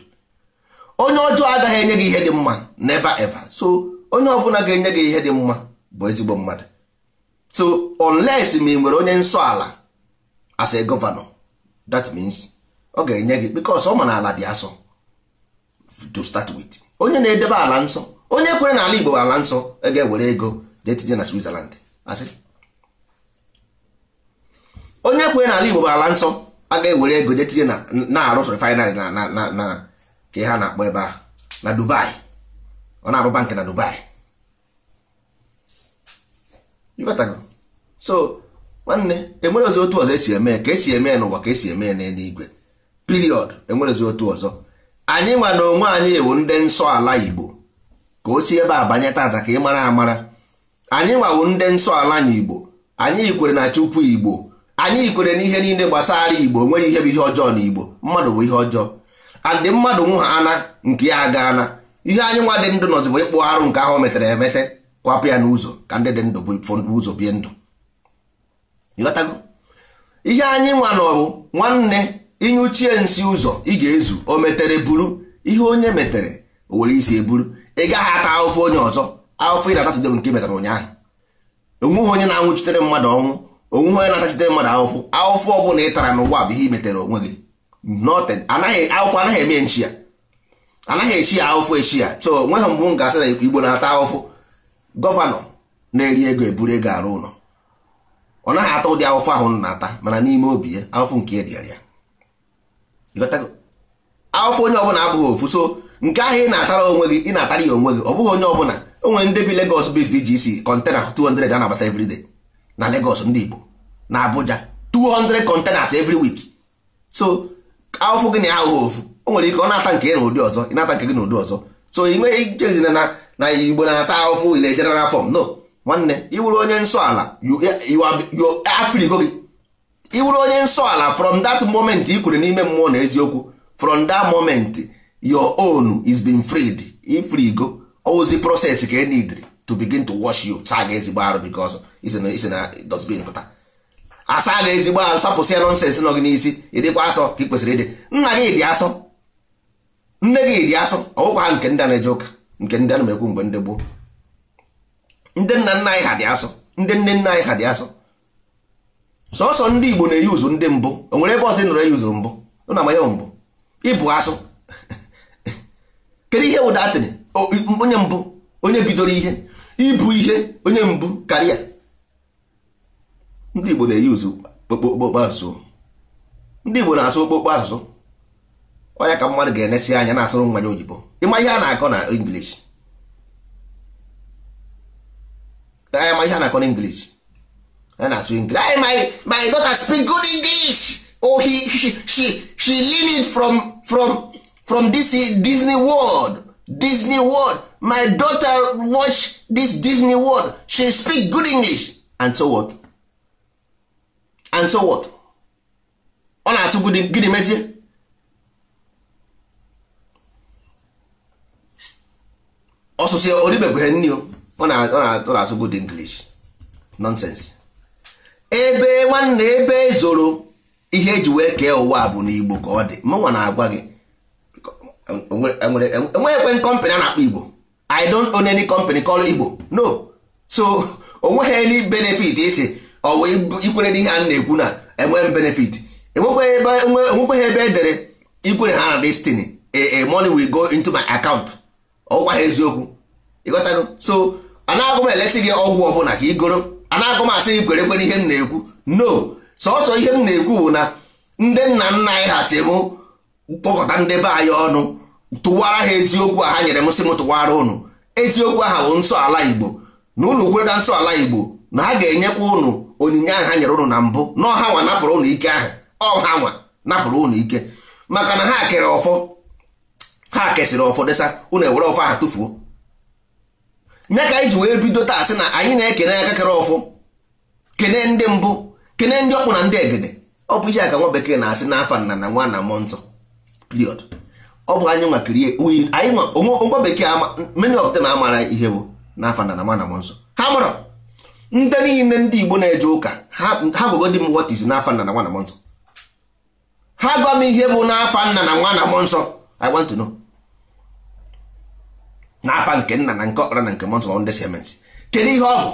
onye ọjọọ agaghị enye gị ihe dị mma never ever so onye ọbụla ga-enye gị ihe dị mma bụ ezigbo mmadụ so unless ma ị nwere onye nsọ ala as a governor that means ọ ga-enye gị because ọ ma na ala dị asọ to start with onye na-edebe ala nsọ onye kwere na ala Igbo ala nsọ e ga-ewere ego jee tinye na Switzerland asị onye kwere na ala Igbo ala nsọ aga ewere ego jee tinye na-arụ refinery na ka ha na-akpọ ebe a na Dubai ọ na-arụ bank na Dubai so nwanne enwere ozi otu ọzọ esi eme ka esi eme n'ụwa ka esi eme n'eluigwe period enwere ozi otu ọzọ anyị nwa na onwe anyị ewu ndị nsọ ala igbo ka o si ebe a banye tata ka ị mara amara anyị nwawo ndị nsọ ala na igbo anyị yikwere na chukwu igbo anyị yikwere na ihe niile gbasara igbo nwere ihe bụ ihe ọjọọ na igbo mmadụ bụ ihe ọjọọ adị mmadụ nwa ana nke ya aga ana ihe anyị nwa dị ndụ nọzibụ ịkpụ arụ nke ahụ metere emete kwapụ ya n'ụzọ ka ndị dị ndụ bụ ụzọ bie ndụ ịghọtago ihe anyị nwa n'ọbụ nwanne ịnyụchie nsị ụzọ ị ga-ezu o metere buru ihe onye metere o were isi eburu ị gaghị ata ahụfụ onye ọzọ ahụfụ ị na-atachite nke metara ụnyaahụ onweghị onye na-anwụchitere mmadụ ọnwụ onweghị onye na-atachitere mmadụ ahụfụ ahụfụ ọ bụla ị tara n'ụwa bụ ihe ị metere onwe gị ahụfụ anaghị eme nchi ya anaghị echi ya ahụfụ echi ya so onweghị mbụ m ga-asị na igbo na-ata ahụfụ gọvanọ na-eri ego eburu ego arụ ụlọ ọ naghị atọ ụdị awụfụ ahụ na-ata mana n'ime obi ya ahụfụ nke edịara ya onye ọbụla abụghị ofu so nke ahụ ị na-atara onwe gị ị na-atara ya onwe gị ọ bụghị onye ọbụla o nwere ndị bi legos bi VGC kọntena 200 a na-abata everyday na legos ndị Igbo na Abuja 200 containers every week so ahụfụ gị na ya ahụghị ofu o nwere ike ọ na-ata nke gị na ụdị ọzọ ị na-ata nke gị na ụdị ọzọ so ị nweghị nchezina na Igbo na-ata ahụfụ ile general form no nwanne iwuru onye nsọ ala afrigo gị iwuru onye nsọ ala from that moment i kwuru n'ime mmụọ na eziokwu from that moment your own is been freed ifrigo ozi process ka enidri to begin to wash you saa gị ezigbo arụ because isi dosbin pụta asa gị ezigbo arụ sapụsị ya nonsens nọ gị n'isi ịdịkwa asọ ka ị kwesịrị ịdị nna gị dị asọ nne gị dị asọ ọgwụkwa ha nke ndị na-eje ụka nke ndị a na-emekwu mgbe ndị gboo ndị nna nna anyị ha dị asụ ndị nne nna anyị ha dị asụ sọsọ ndị igbo na-eyi uzu ndị mbụ o nwere ebe ọzọ nọrọ eyi uzu mbụ na amaya mbụ ịbụ asụ kedu ihe wụda atịrị onye mbụ onye bidoro ihe ibu ihe onye mbụ karịa ndị igbo na-eyi uzu okpokpo asụsụ ndị igbo na-asụ okpokpo asụsụ onya ka mmadụ ga-enesi anya na-asụrụ nwa ya oyibo ịma ihe a na-akọ na English ka anyị ma ihe a na-akọ n'English anyị na-asụ English anyị my my daughter speak good English oh he she she, she learn it from from from this Disney World Disney World my daughter watch this Disney World she speak good English and so what and so what ọ na-asụ gịnị mezie ọsụsụ ọdịbebeghe nni o ọ na-asụ good English nonsense ebe nwanne ebe e zoro ihe eji wee kee ụwa bụ n'Igbo ka ọ dị mụnwa na-agwa gị enweghị kọmpanị a na-akpọ Igbo I don't own any company called Igbo no so onweghị any benefit isi ọ wee ikwere n'ihe a na-ekwu na enweghị benefit enwekweghị ebe edere e e ikwere ha na destiny a money will go into my account ọgwa ha eziokwu ịghọtago so anagụ m elesi gị ọgwụ ọbụla ka igoro anagụ m asị gị kwere kwere ihe m na-ekwu no sọsọ ihe m na-ekwu bụ na ndị nna nna anyị ha si m kpọkọta ndị be anyị ọnụ tụwara ha eziokwu a ha nyere m sị m tụwara ụnụ eziokwu aha bụ nsọ ala igbo na ụnụ kweda nsọ ala igbo na ha ga-enyekwa ụnụ onyinye ahụ ha nyere ụnụ na mbụ na ọha nwa napụrụ ụnụ ike ahụ ọha nwa napụrụ ụnụ ike maka na ha kere ọfọ ha kesịrị ọfọ desa ụnụ ewere ọfọ aha tụfuo nye ka anyị ji wee bido taa sị na anyị na-ekene aka kere ọfụ kene ndị mbụ kene ndị ọkpụ na ndị egede ọ bụ ihe a ka nwa bekee na-asị na afa nna na nwa na mmụọ nsọ period ọ bụ anyị nwa nwa bekee many of them amara ihe bụ n'afa nna na nwa na mmụọ nsọ ha mara ndị niile ndị igbo na-eje ụka ha gwagodi m what is n'afa nna na nwa na mmụọ nsọ ha gwa m ihe bụ na afa nna na nwa na mmụọ nsọ I want to know na nke nna na nke ọkpara na nke mọnsọ ndị semens kedu ihe ọ bụ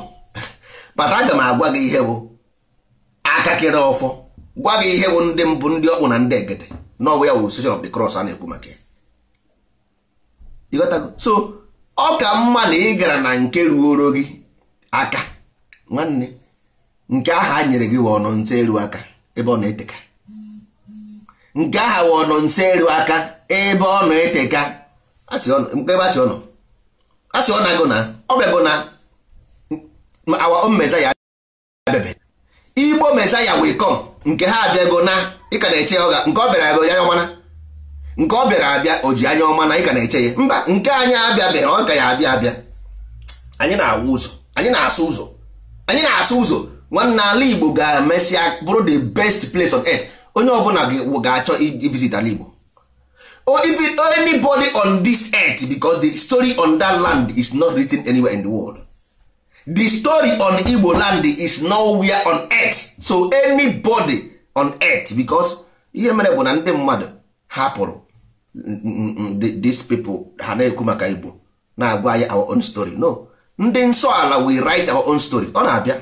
bata aga m agwa gị ihe bụ akakịrị ọfọ gwa gị ihe bụ ndị mbụ ndị ọkpụ na ndị egede n'ọbụ ya wụ session of the cross a na-ekwu maka ya so ọ ka mma na ị gara na nke ruoro gị aka nwanne nke aha a nyere gị wụ ọnọ nse eru aka ebe ọ na-eteka nke aha wụ ọnọ nse eru aka ebe ọ na-eteka ebe a sị ọnọ a sị ọ na-agụ na ọ bịago na our own Messiah abịabe Igbo Messiah wee come nke ha abịago na ịka na-eche ya nke ọ bịara abịa anya ọma na nke ọ bịara abịa o ji anya ọma na ịka na-eche ya mba nke anyị abịabeghị ọ ga ya abịa abịa anyị na-awụ ụzọ anyị na-asụ ụzọ anyị na-asụ ụzọ nwanne ala Igbo ga-emesịa bụrụ the best place on earth onye ọbụla ga-achọ ivisit ala Igbo or even anybody on this earth because the story on that land is not written anywhere in the world the story on Igbo land is nowhere on earth so anybody on earth because ihe mere bụ na ndị mmadụ hapụrụ dis people ha na-ekwu maka Igbo na-agwa anyị our own story no ndị nsọ ala we write our own story ọ na-abịa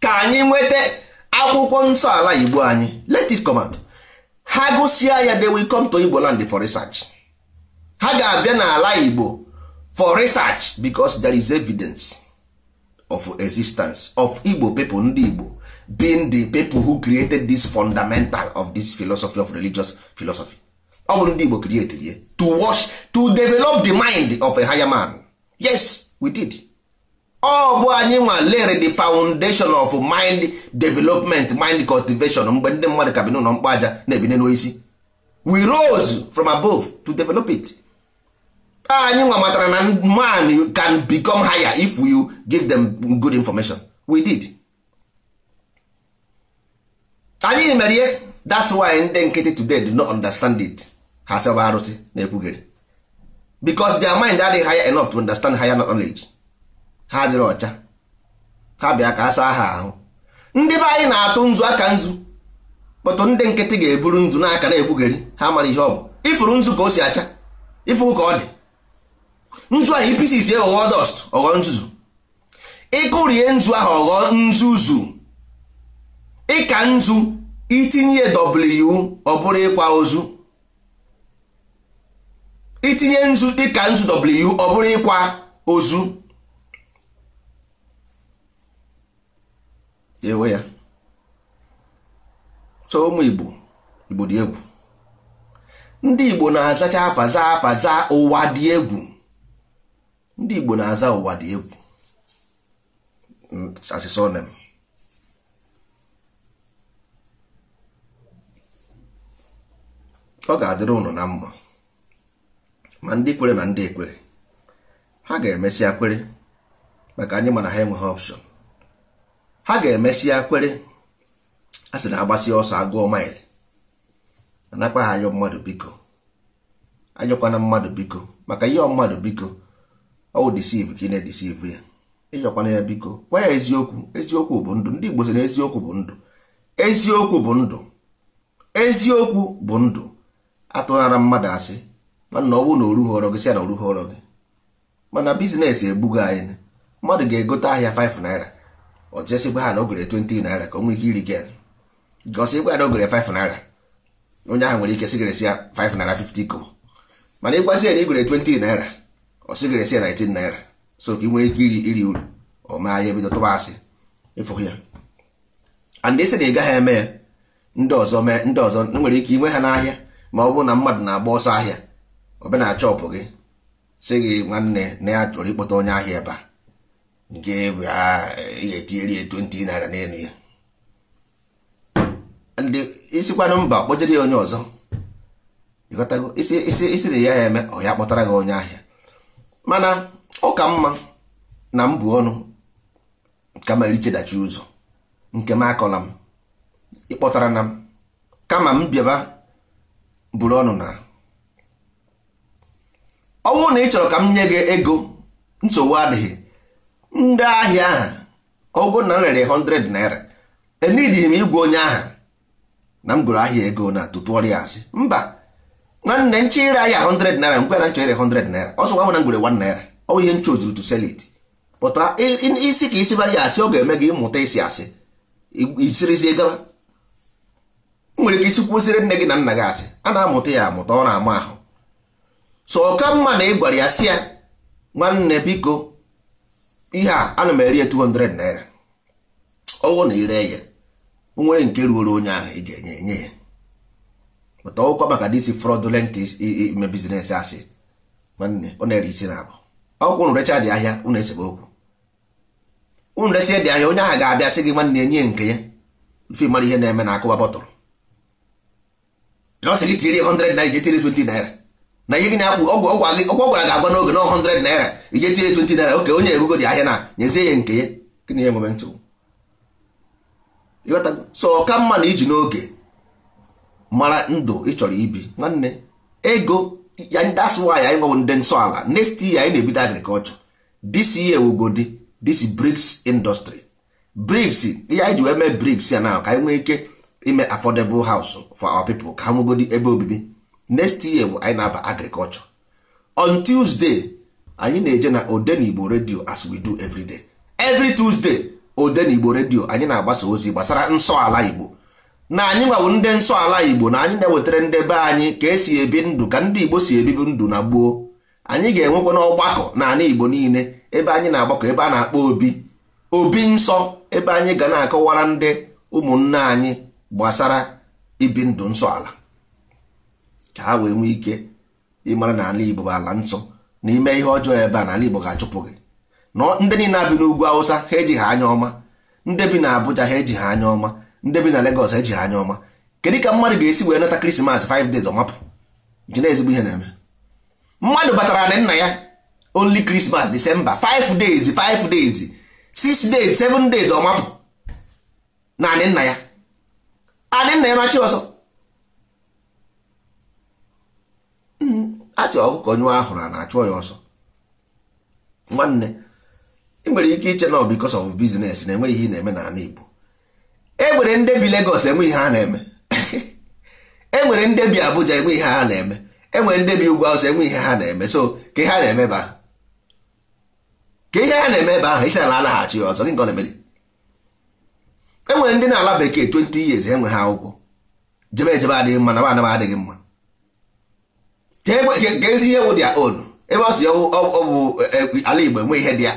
ka anyị nweta akwụkwọ nsọ ala Igbo anyị let it come out ha gụsịa ya they will come to Igbo land for research ha ga-abịa n'ala Igbo for research because there is evidence of existence of Igbo people ndị Igbo being the people who created this fundamental of this philosophy of religious philosophy ọ bụ ndị Igbo create to wash to develop the mind of a higher man yes we did Ọbụ bụ anyị nwa lere the foundation of mind development mind cultivation mgbe ndị mmadụ ka bi n'ụlọ mkpa aja na-ebine n'oisi we rose from above to develop it anyị nwa matara na man can become higher if you give them good information we did anyị mere ihe that's why ndị nkịtị today do not understand it ha sebe arụsị na-ekwugheri because their mind adịghị higher enough to understand higher knowledge ha adịrị ọcha ha bịa ka a saa ha ahụ ndị be anyị na-atụ nzu aka nzu kpọtụ ndị nkịtị ga-eburu nzu n'aka na-ekwugheri ha mara ihe ọ bụ ịfụrụ nzu ka o si acha ịfụrụ ka ọ dị nzu ahụ ipisisi ghọọ dọst ọghọọ nzuzu ịkụrie nzu ahụ ọghọọ nzuzu ịka nzu itinye w ọ bụrụ ịkwa ozu itinye nzu ịka nzu w ọ bụrụ ịkwa ozu ewe ya so ụmụ igbo igbo dị egwu ndị igbo na-azacha afaza afaza ụwa dị egwu ndị igbo na-aza ụwa dị egwu mm, asisonem ọ ga-adịrị ụnụ na mma ma ndị kwere ma ndị ekwere ha ga-emesịa kwere maka anyị mana ha enweghị ọpshọn ha ga-emesịa kwere a sị na agbasi ọsọ agụọ maịlị anakwa ha anyọ mmadụ biko anyọkwana mmadụ biko maka ihe mmadụ biko ọwụ disiv ka ị na-edisiv ya ịyọkwana ya biko gwa ya eziokwu eziokwu bụ ndụ ndị Igbo sị na eziokwu bụ ndụ eziokwu bụ ndụ eziokwu bụ ndụ atụghara mmadụ asị mana ọ bụrụ na oru họrọ gị sị na oru họrọ gị mana bizinesi ebugo anyị mmadụ ga-egote ahịa 5 naira ọtụtụ esi ha na o gere naira ka o nwee ike iri gen gosi ịgwa na o gere 5 naira onye nwere ike sigresi ya 5 naira 50 mana ịgwazi ya na igwere 20 naira ọ sigresi ya 19 naira so ka ị nwere ike iri iri uru ọ maa ya ebido tụba asị ya and na ị gaghị eme ya ndị ọzọ mee ndị ọzọ nwere ike inwe ha n'ahịa ma ọ bụrụ na mmadụ na-agba ọsọ ahịa ọbịa na chọpụ gị si gị nwanne na ya chọrọ ịkpọta onye ahịa ebe a nke ga-etinyere ya 20 naira n'elu ya isikwana mba kpọjere ya onye ọzọ isiri ya eme ọ ya kpọtara gị onye ahịa mana ọ ka mma na mbụ ọnụ kama erichedachi ụzọ nke m akọla m ịkpọtara na m kama m bịaba buru ọnụ na ọnwụ na ị chọrọ ka m nye gị ego nsogbu adịghị ndị ahịa ahụ ọgụ na m 100 naira enidi m igwe onye ahụ na m gụrụ ahịa ego na tutu ọrịa asị mba nwanne nche ire ahịa 100 naira mgbe na nchọ ire 100 naira ọsọ gwa m na m gwere 1 naira ọ ihe nche ozuru to sell isi ka isi bara ya asị ọ ga-eme gị ịmụta isi asị isirizie gaba nwere ike isi kwụsịrị nne gị na nna gị asị a na-amụta ya amụta ọ na-ama ahụ so ọka mma na ị gwara ya sị ya nwanne biko ihe a ana m eri ya 200 naira ọwụ na ire ya o nwere nke ruoro onye ahụ ị ga-enye enye ya mata ọwụkwa maka disi fraudulent ime bizines asị nwanne ọ na-ere isi na abụ ọkwụ unu recha dị ahịa unu esebe okwu ụnụ resi dị ahịa onye ahụ ga-abịa sị gị nwanne enye nke ya ife mara ihe na-eme na akụwa bọtụrụ na ọ sị gị tiri 100 naira ga tiri 20 naira na ihe gị na-akwụ ọgwụ ọgwụ gị ọgwụ gwara gị agwa n'oge na 100 naira ije tinye 20 naira oke onye egogo dị ahịa na nyezie ya nke ya gịnị ya enwebe ntụrụ so ọka mma na iji n'oge mara ndụ ị chọrọ ibi nwanne ego ya that's why anyị nwebụ ndị nsọ ala next year anyị na-ebido agriculture this year wugodi this BRICS industry BRICS ihe anyị ji wee mee BRICS ya na ka anyị nwee ike ime affordable house for our people ka ha nwegodi ebe obibi next year bụ anyị na-aba agriculture on tuesday anyị na-eje na odenigbo redio as we do everyday every tuesday odenigbo redio anyị na-agbasa ozi gbasara nsọ ala igbo na anyị nwawo ndị nsọ ala igbo na anyị na-ewetara ndị be anyị ka esi ebi ndụ ka ndị igbo si ebibi ndụ na gboo anyị ga-enwekwa n'ọgbakọ na ala igbo niile ebe anyị na-agbakọ ebe a na-akpọ obi obi nsọ ebe anyị ga na-akọwara ndị ụmụnne anyị gbasara ibi ndụ nsọ ala ka ha wee nwee ike ịmara na ala Igbo bụ ala nsọ n'ime ihe ọjọọ ebe a n'ala Igbo ga-achụpụ gị na ndị niile abi n'ugwu Awụsa ha eji ha anya ọma ndị bi na Abuja ha eji ha anya ọma ndị bi na Lagos ha eji ha anya ọma kedu ka mmadụ ga-esi wee nata Krismas 5 days ọmapụ ji na ezigbo ihe na-eme mmadụ batara na nna ya only Christmas December 5 days 5 days 6 days 7 days ọmapụ na anị nna ya anị nna ya na chi ọsọ achị ọkụkọ nyụọ ahụrụ a na-achụọ ya ọsọ nwanne ị nwere ike iche na because of business na-enweghị ihe na-eme n'ala Igbo enwere ndị bi Lagos enwe ihe ha na-eme enwere ndị bi Abuja enwe ihe ha na-eme enwere ndị bi ugwu awụsa enwe ihe ha na-eme so ka ihe ha na-eme ebe ahụ ka ihe ha na-eme ebe ahụ isi na alaghachi ya ọzọ gị nke ọ na-emere enwere ndị na-ala bekee 20 years enwe ha akwụkwọ jebe ejebe adịghị mma na adịghị mma ga ihe wụ dia on ebe ọ si e, e, e, ala Igbo enwe ihe dị ya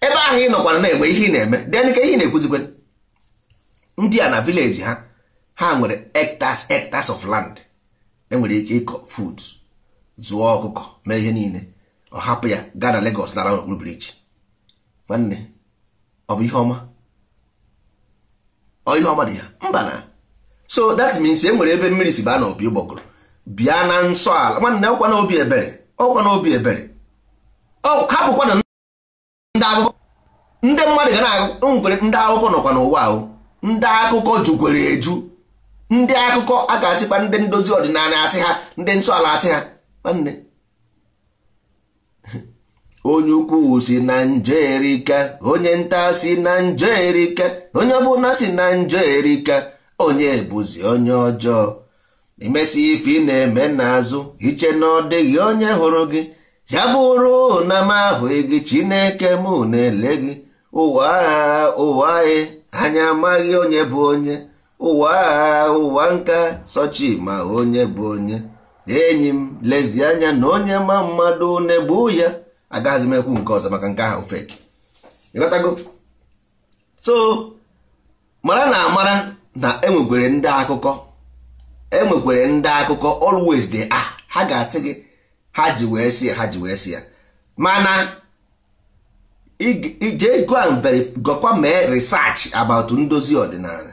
ebe ahụ ị nọkwana na-egbe ihe ị na-eme den ka ihe na-ekwuzikwe ndị a na vileji ha ha nwere hectares hectares of land enwere ike ịkọ fud zụọ ọkụkọ mee ihe niile ọ hapụ ya gaa na Lagos lara n'okpuru briji nwanne ọ bụ ihe ọma ọ ihe ọma dị ya mba na so that means e nwere ebe mmiri si baa na opi ụgbọgụrụ bịa na nsọ ala nwanne ọkwa na ebere ọkwa na ebere hapụkwa na ndị akụkọ ndị mmadụ ga na-agwere ndị akụkọ nọkwa n'ụwa ahụ ndị akụkọ jukwere eju ndị akụkọ a ga-achịkwa ndị ndozi ọdịnala asị ha ndị nsọ ala asị ha nwanne onye ukwu si na njerika onye nta si na njerika onye ọbụla si na njerika onye bụzi onye ọjọọ emesi ife ị na-eme n'azụ iche na ọ dịghị onye hụrụ gị ya bụrụ na m ahụghị gị chineke mụ na-ele gị ụwa agha ụwa e, anyị anya amaghị onye bụ onye ụwa agha ụwa nka sochi ma onye bụ onye enyi m lezi anya na onye ma mmadụ na-egbu ya agaghị m ekwu nke ọzọ maka nke ahụ so mara na amara na enwekwere ndị akụkọ enwekwere ndị akụkọ always dey a ah, ha ga-asị gị ha ji wee si ha ji wee si ya mana ije gọkwa mee research about ndozi ọdịnala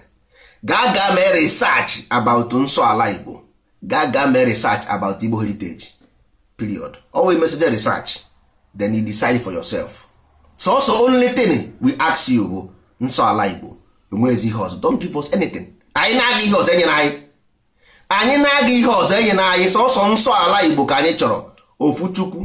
gaa gaa mee research about nsọ ala Igbo gaa mee research about Igbo heritage period always message research then you decide for yourself so so only thing we ask you bụ nsọ ala Igbo enweghị ihe ọzọ don't give us anything anyị na-aga ihe ọzọ enye anyị anyị na-aga ihe ọzọ enye na anyị sọsọ nsọ ala igbo ka anyị chọrọ ofu chukwu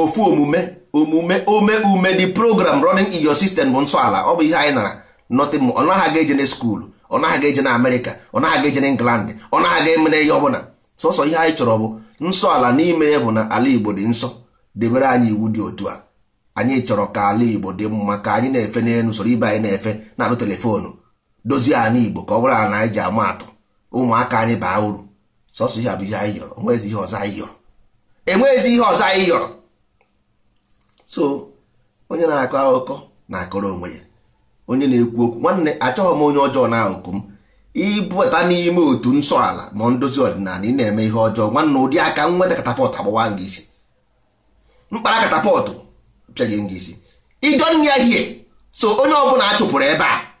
ofu omume omume ome ume the program running in your system bụ nsọ ala ọ bụ ihe anyị nara nothing more ọ naghị aga eje na skuul ọ naghị aga eje na amerịka ọ naghị aga eje na england ọ naghị aga emere ihe ọbụla sọsọ ihe anyị chọrọ bụ nsọ ala n'ime ya bụ na ala igbo dị nsọ debere anyị iwu dị otu a anyị chọrọ ka ala igbo dị mma ka anyị na-efe n'elu usoro ibe anyị na-efe na-alụ telefonu dozie ala igbo ka ọ bụrụ ala anyị ji ama atụ ụmụaka anyị baa uru sọsọ ihe abụ ihe anyị yọrọ enweghịzi ihe ọzọ anyị yọrọ enweghịzi ihe ọzọ anyị yọrọ so onye na-akọ akụkọ na-akọrọ onwe ya onye na-ekwu okwu nwanne achọghị m onye ọjọọ na oku m ịbụta n'ime otu nsọ ala ma ndozi ọdịnala ị na-eme ihe ọjọọ nwanne ụdị aka nweta katapọtụ agbawa gị isi mkpara katapọtụ pịa gị isi ịjọ ya hie so onye ọbụla a chụpụrụ ebe a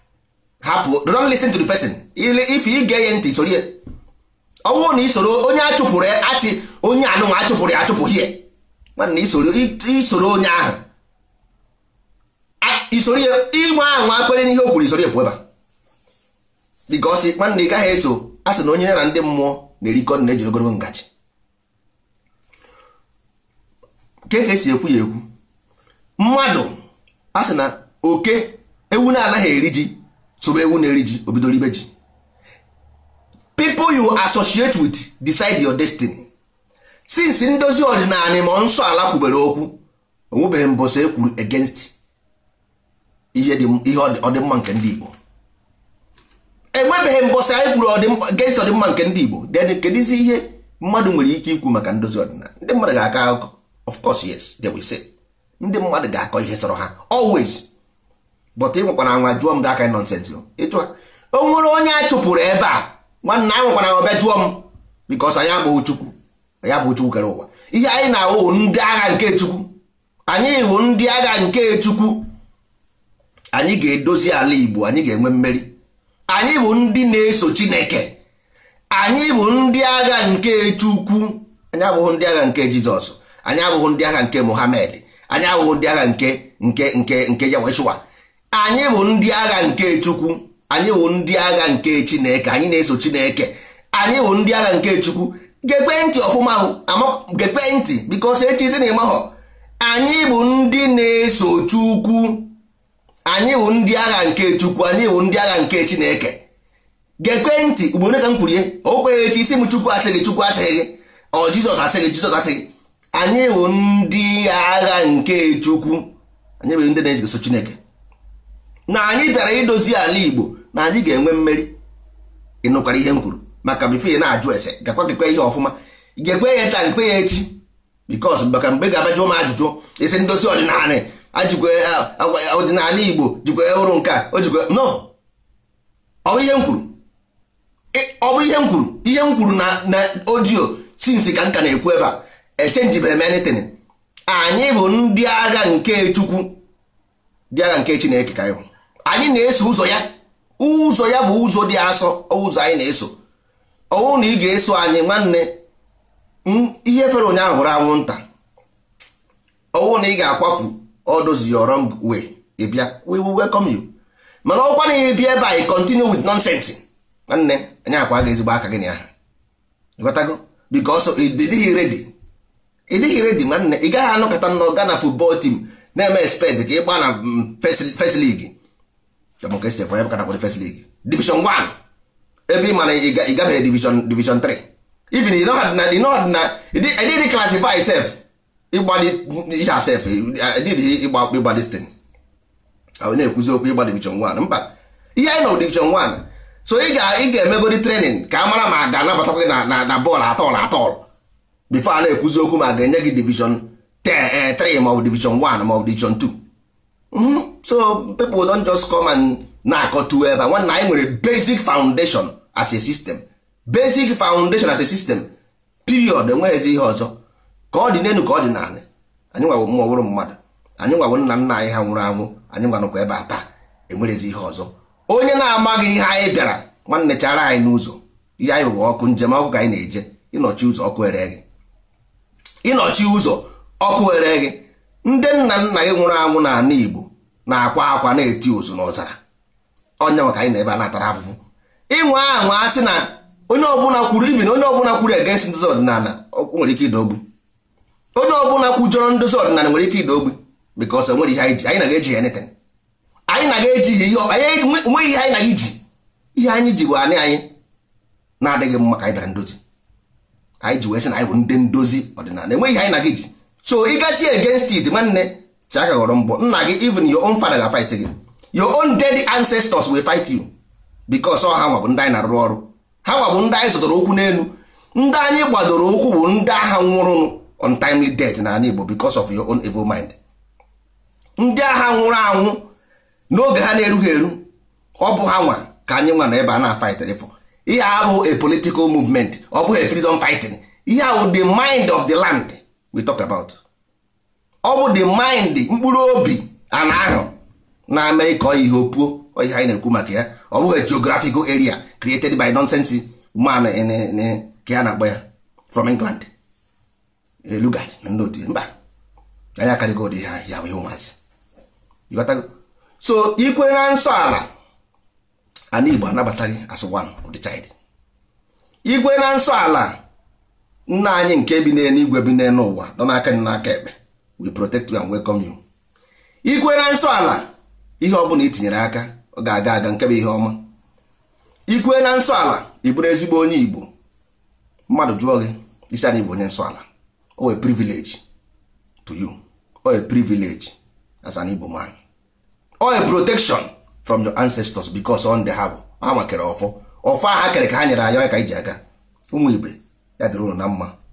hapụ don't listen to the person if ị ga-enye ntị soro na isoro onye achụpụrụ achị onye anụnwa achụpụrụ ya achụpụ hie na isoro onye ahụ isoro ihe ịnwa ahụ akwere n'ihe o kwuru isoro ya pụọ ebe dịgosi nwanne ị gaghị eso a sị na onye ya na ndị mmụọ na-erikọ na-eji ogologo ngaji nke ka esi ekwu ya ekwu mmadụ a na oke ewu na-anaghị eri ji sobe ewu na-eri ji obidoro ibe ji people you associate with decide your destiny since ndozi ọdịnala ma nsọ ala kwubere okwu onwebeghị mbọsọ ekwuru against ihe ọdịmma nke ndị Igbo enwebeghị mbọsọ anyị ekwuru against ọdịmma nke ndị Igbo then kedizi ihe mmadụ nwere ike ikwu maka ndozi ọdịnala ndị mmadụ ga-akọ akụkọ of course yes they will say ndị mmadụ ga-akọ ihe sọrọ ha always but ị nwekwara nwa jụọ m that kind nonsense ịchụ o nwere onye a chụpụrụ ebe a nwanne anyị nwekwara nwa bịa jụọ m because anyị abụghị chukwu anyị abụghị chukwu kere ụwa ihe anyị na-awụ ndị agha nke chukwu anyị wụ ndị agha nke chukwu anyị ga-edozi ala igbo anyị ga-enwe mmeri anyị bụ ndị na-eso chineke anyị bụ ndị agha nke chukwu anyị abụghị ndị agha nke jizọs anyị abụghị ndị agha nke mohamed anyị abụghị ndị agha nke nke nke nke yaweshua anyị bụ ndị agha nke chukwu anyị bụ ndị agha nke chineke anyị na-eso chineke anyị bụ ndị agha nke chukwu gekwe ntị ọfụma gekwe ntị echi echizi na ịmahọ anyị bụ ndị na-eso chukwu anyị bụ ndị agha nke chukwu anyị bụ ndị agha nke chineke gekwe ntị ugboro ka m kwuru ihe o kweghị echi isi m chukwu asịghị chukwu asịghị gị ọ jizọs asịghị jizọs asịghị anyị bụ ndị agha nke chukwu anyị bụ ndị na-eso chineke na anyị bịara idozi ala igbo na anyị ga-enwe mmeri ịnụkwara ihe m kwuru maka bife na-ajụ ese gakwa gekwe ihe ọfụma gekwe ya taa nkwe ya echi bikos maka mgbe ga-abajụ m ajụjụ isi ndozi ọdịnala ajikwe ọdịnala igbo jikwa ọrụ nke a jikwa no ọ bụ ihe m kwuru ọ bụ ihe m kwuru ihe m kwuru na odiyo sinsi ka nka na-ekwu ebe a echenji m anyị bụ ndị agha nke chukwu ndị agha nke chineke ka anyị bụ anyị na-eso ụzọ ya ụzọ ya bụ ụzọ dị asọ ụzọ anyị na-eso ọwụ na ị ga-eso anyị nwanne ihe fere ụnyaahụ hụrụ anwụnta ọwụ na ị ga-akwafu ọdozi your wrong way ị bịa we will welcome you mana ọkwa na ị bịa ebe anyị continue with nonsense nwanne anyị akwa ga ezigbo aka gị na aha ịghọtago because ịdịghị ready ịdịghị ready nwanne ị gaghị anọkọta nnọọ na football team na-eme expect ka ị gbaa na first league chọkwa ka esi ekwe first league division 1 ebe ị mana ị gabeghị division division 3 even ị nọghị na ịdịghị classify sef ịgbali asef ịdịghị ịgba ịgba destin na-ekwuzi okwu ịgba division 1 mba ihe anyị nọ division 1 so ị ga-emegodi trenin ka a mara ma a ga-anabatakwa gị na na bọọlụ atọl atọl bifo a na-ekwuzi okwu ma a ga-enye gị division 3 ma ọ division 1 ma division 2 Mm-hmm. so people don just come and na-akọtu ebe nwanne anyị nwere basic foundation as a system basic foundation as a system period enweghịzi ihe ọzọ ka ọ dị n'elu ka ọ dị n'ala anyị nwawo mmụọ wụrụ mmadụ anyị nwawo nna nna anyị ha nwụrụ anwụ anyị nwanụkwa ebe a taa enwerezi ihe ọzọ onye na-amaghị ihe anyị bịara nwanne chara anyị n'ụzọ ihe anyị bụ ọkụ njem ọkụ ka anyị na-eje ịnọchi ụzọ ọkụ ere gị ịnọchi ụzọ ọkụ ere gị ndị nna nna gị nwụrụ anwụ n'ala Igbo na-akwa akwa na-eti ozu n'ọzara onye maka anyị na-ebe a natara afụfụ ịnwe ahụ a sị na onye ọbụla kwuru ibi na onye ọbụla kwuru egenst ndozi ọdịnala nwere ike ịda ogbu onye ọbụla kwujọrọ ndozi ọdịnala nwere ike ịda ogbu bikos nwere ihe anyị ji anyị na-eji ya neten anyị na-eji ihe anyị nweghị ihe anyị na iji ihe anyị ji bụ anị anyị na-adịghị mma ka anyị bịara ndozi anyị ji wee sị na anyị bụ ndị ndozi ọdịnala enweghị ihe anyị na gị ji so ị gazi against it nwanne chiaka ghọrọ mbọ nna gị even your own father ga fight gị your own dead ancestors will fight you because ọ ha nwa bụ ndị anyị na-arụ ọrụ ha nwa bụ ndị anyị zụtara okwu n'elu ndị anyị gbadoro okwu bụ ndị agha nwụrụ untimely death na ala Igbo because of your own evil mind ndị agha nwụrụ anwụ n'oge ha na-erughị eru ọ bụ ha nwa ka anyị nwa na ebe a na-afightr for ihe a bụ a political movement ọ bụghị freedom fighting ihe a bụ the mind of the land we talk about ọ bụ the mind mkpụrụ obi ana ahụ na-eme ka ihe opuo ihe anyị na-ekwu maka ya ọ bụghị geographical area created by nonsense man ka ya na-akpọ ya from England elugai na ndị otu mba anyị akarịgo ụdị ha ya wee ụmụazị so ikwe na nsọ ala ana Igbo anabataghị as one of the child na nsọ ala nna anyị nke bi n'eluigwe bi n'elu ụwa nọ n'aka nị n'aka ekpe we protect you and welcome you ikwe na nsọ ala ihe ọ bụla itinyere aka ọ ga-aga aga nke bụ ihe ọma ikwe na nsọ ala ị ezigbo onye igbo mmadụ jụọ gị isi anyị bụ onye nsọ ala o privilege to you o wee privilege as an igbo man o wee protection from your ancestors because on the ha bụ ha makere ọfọ ọfọ ha kere ka ha nyere anyị ka iji aga ụmụ igbe ya dịrị ụlọ na mma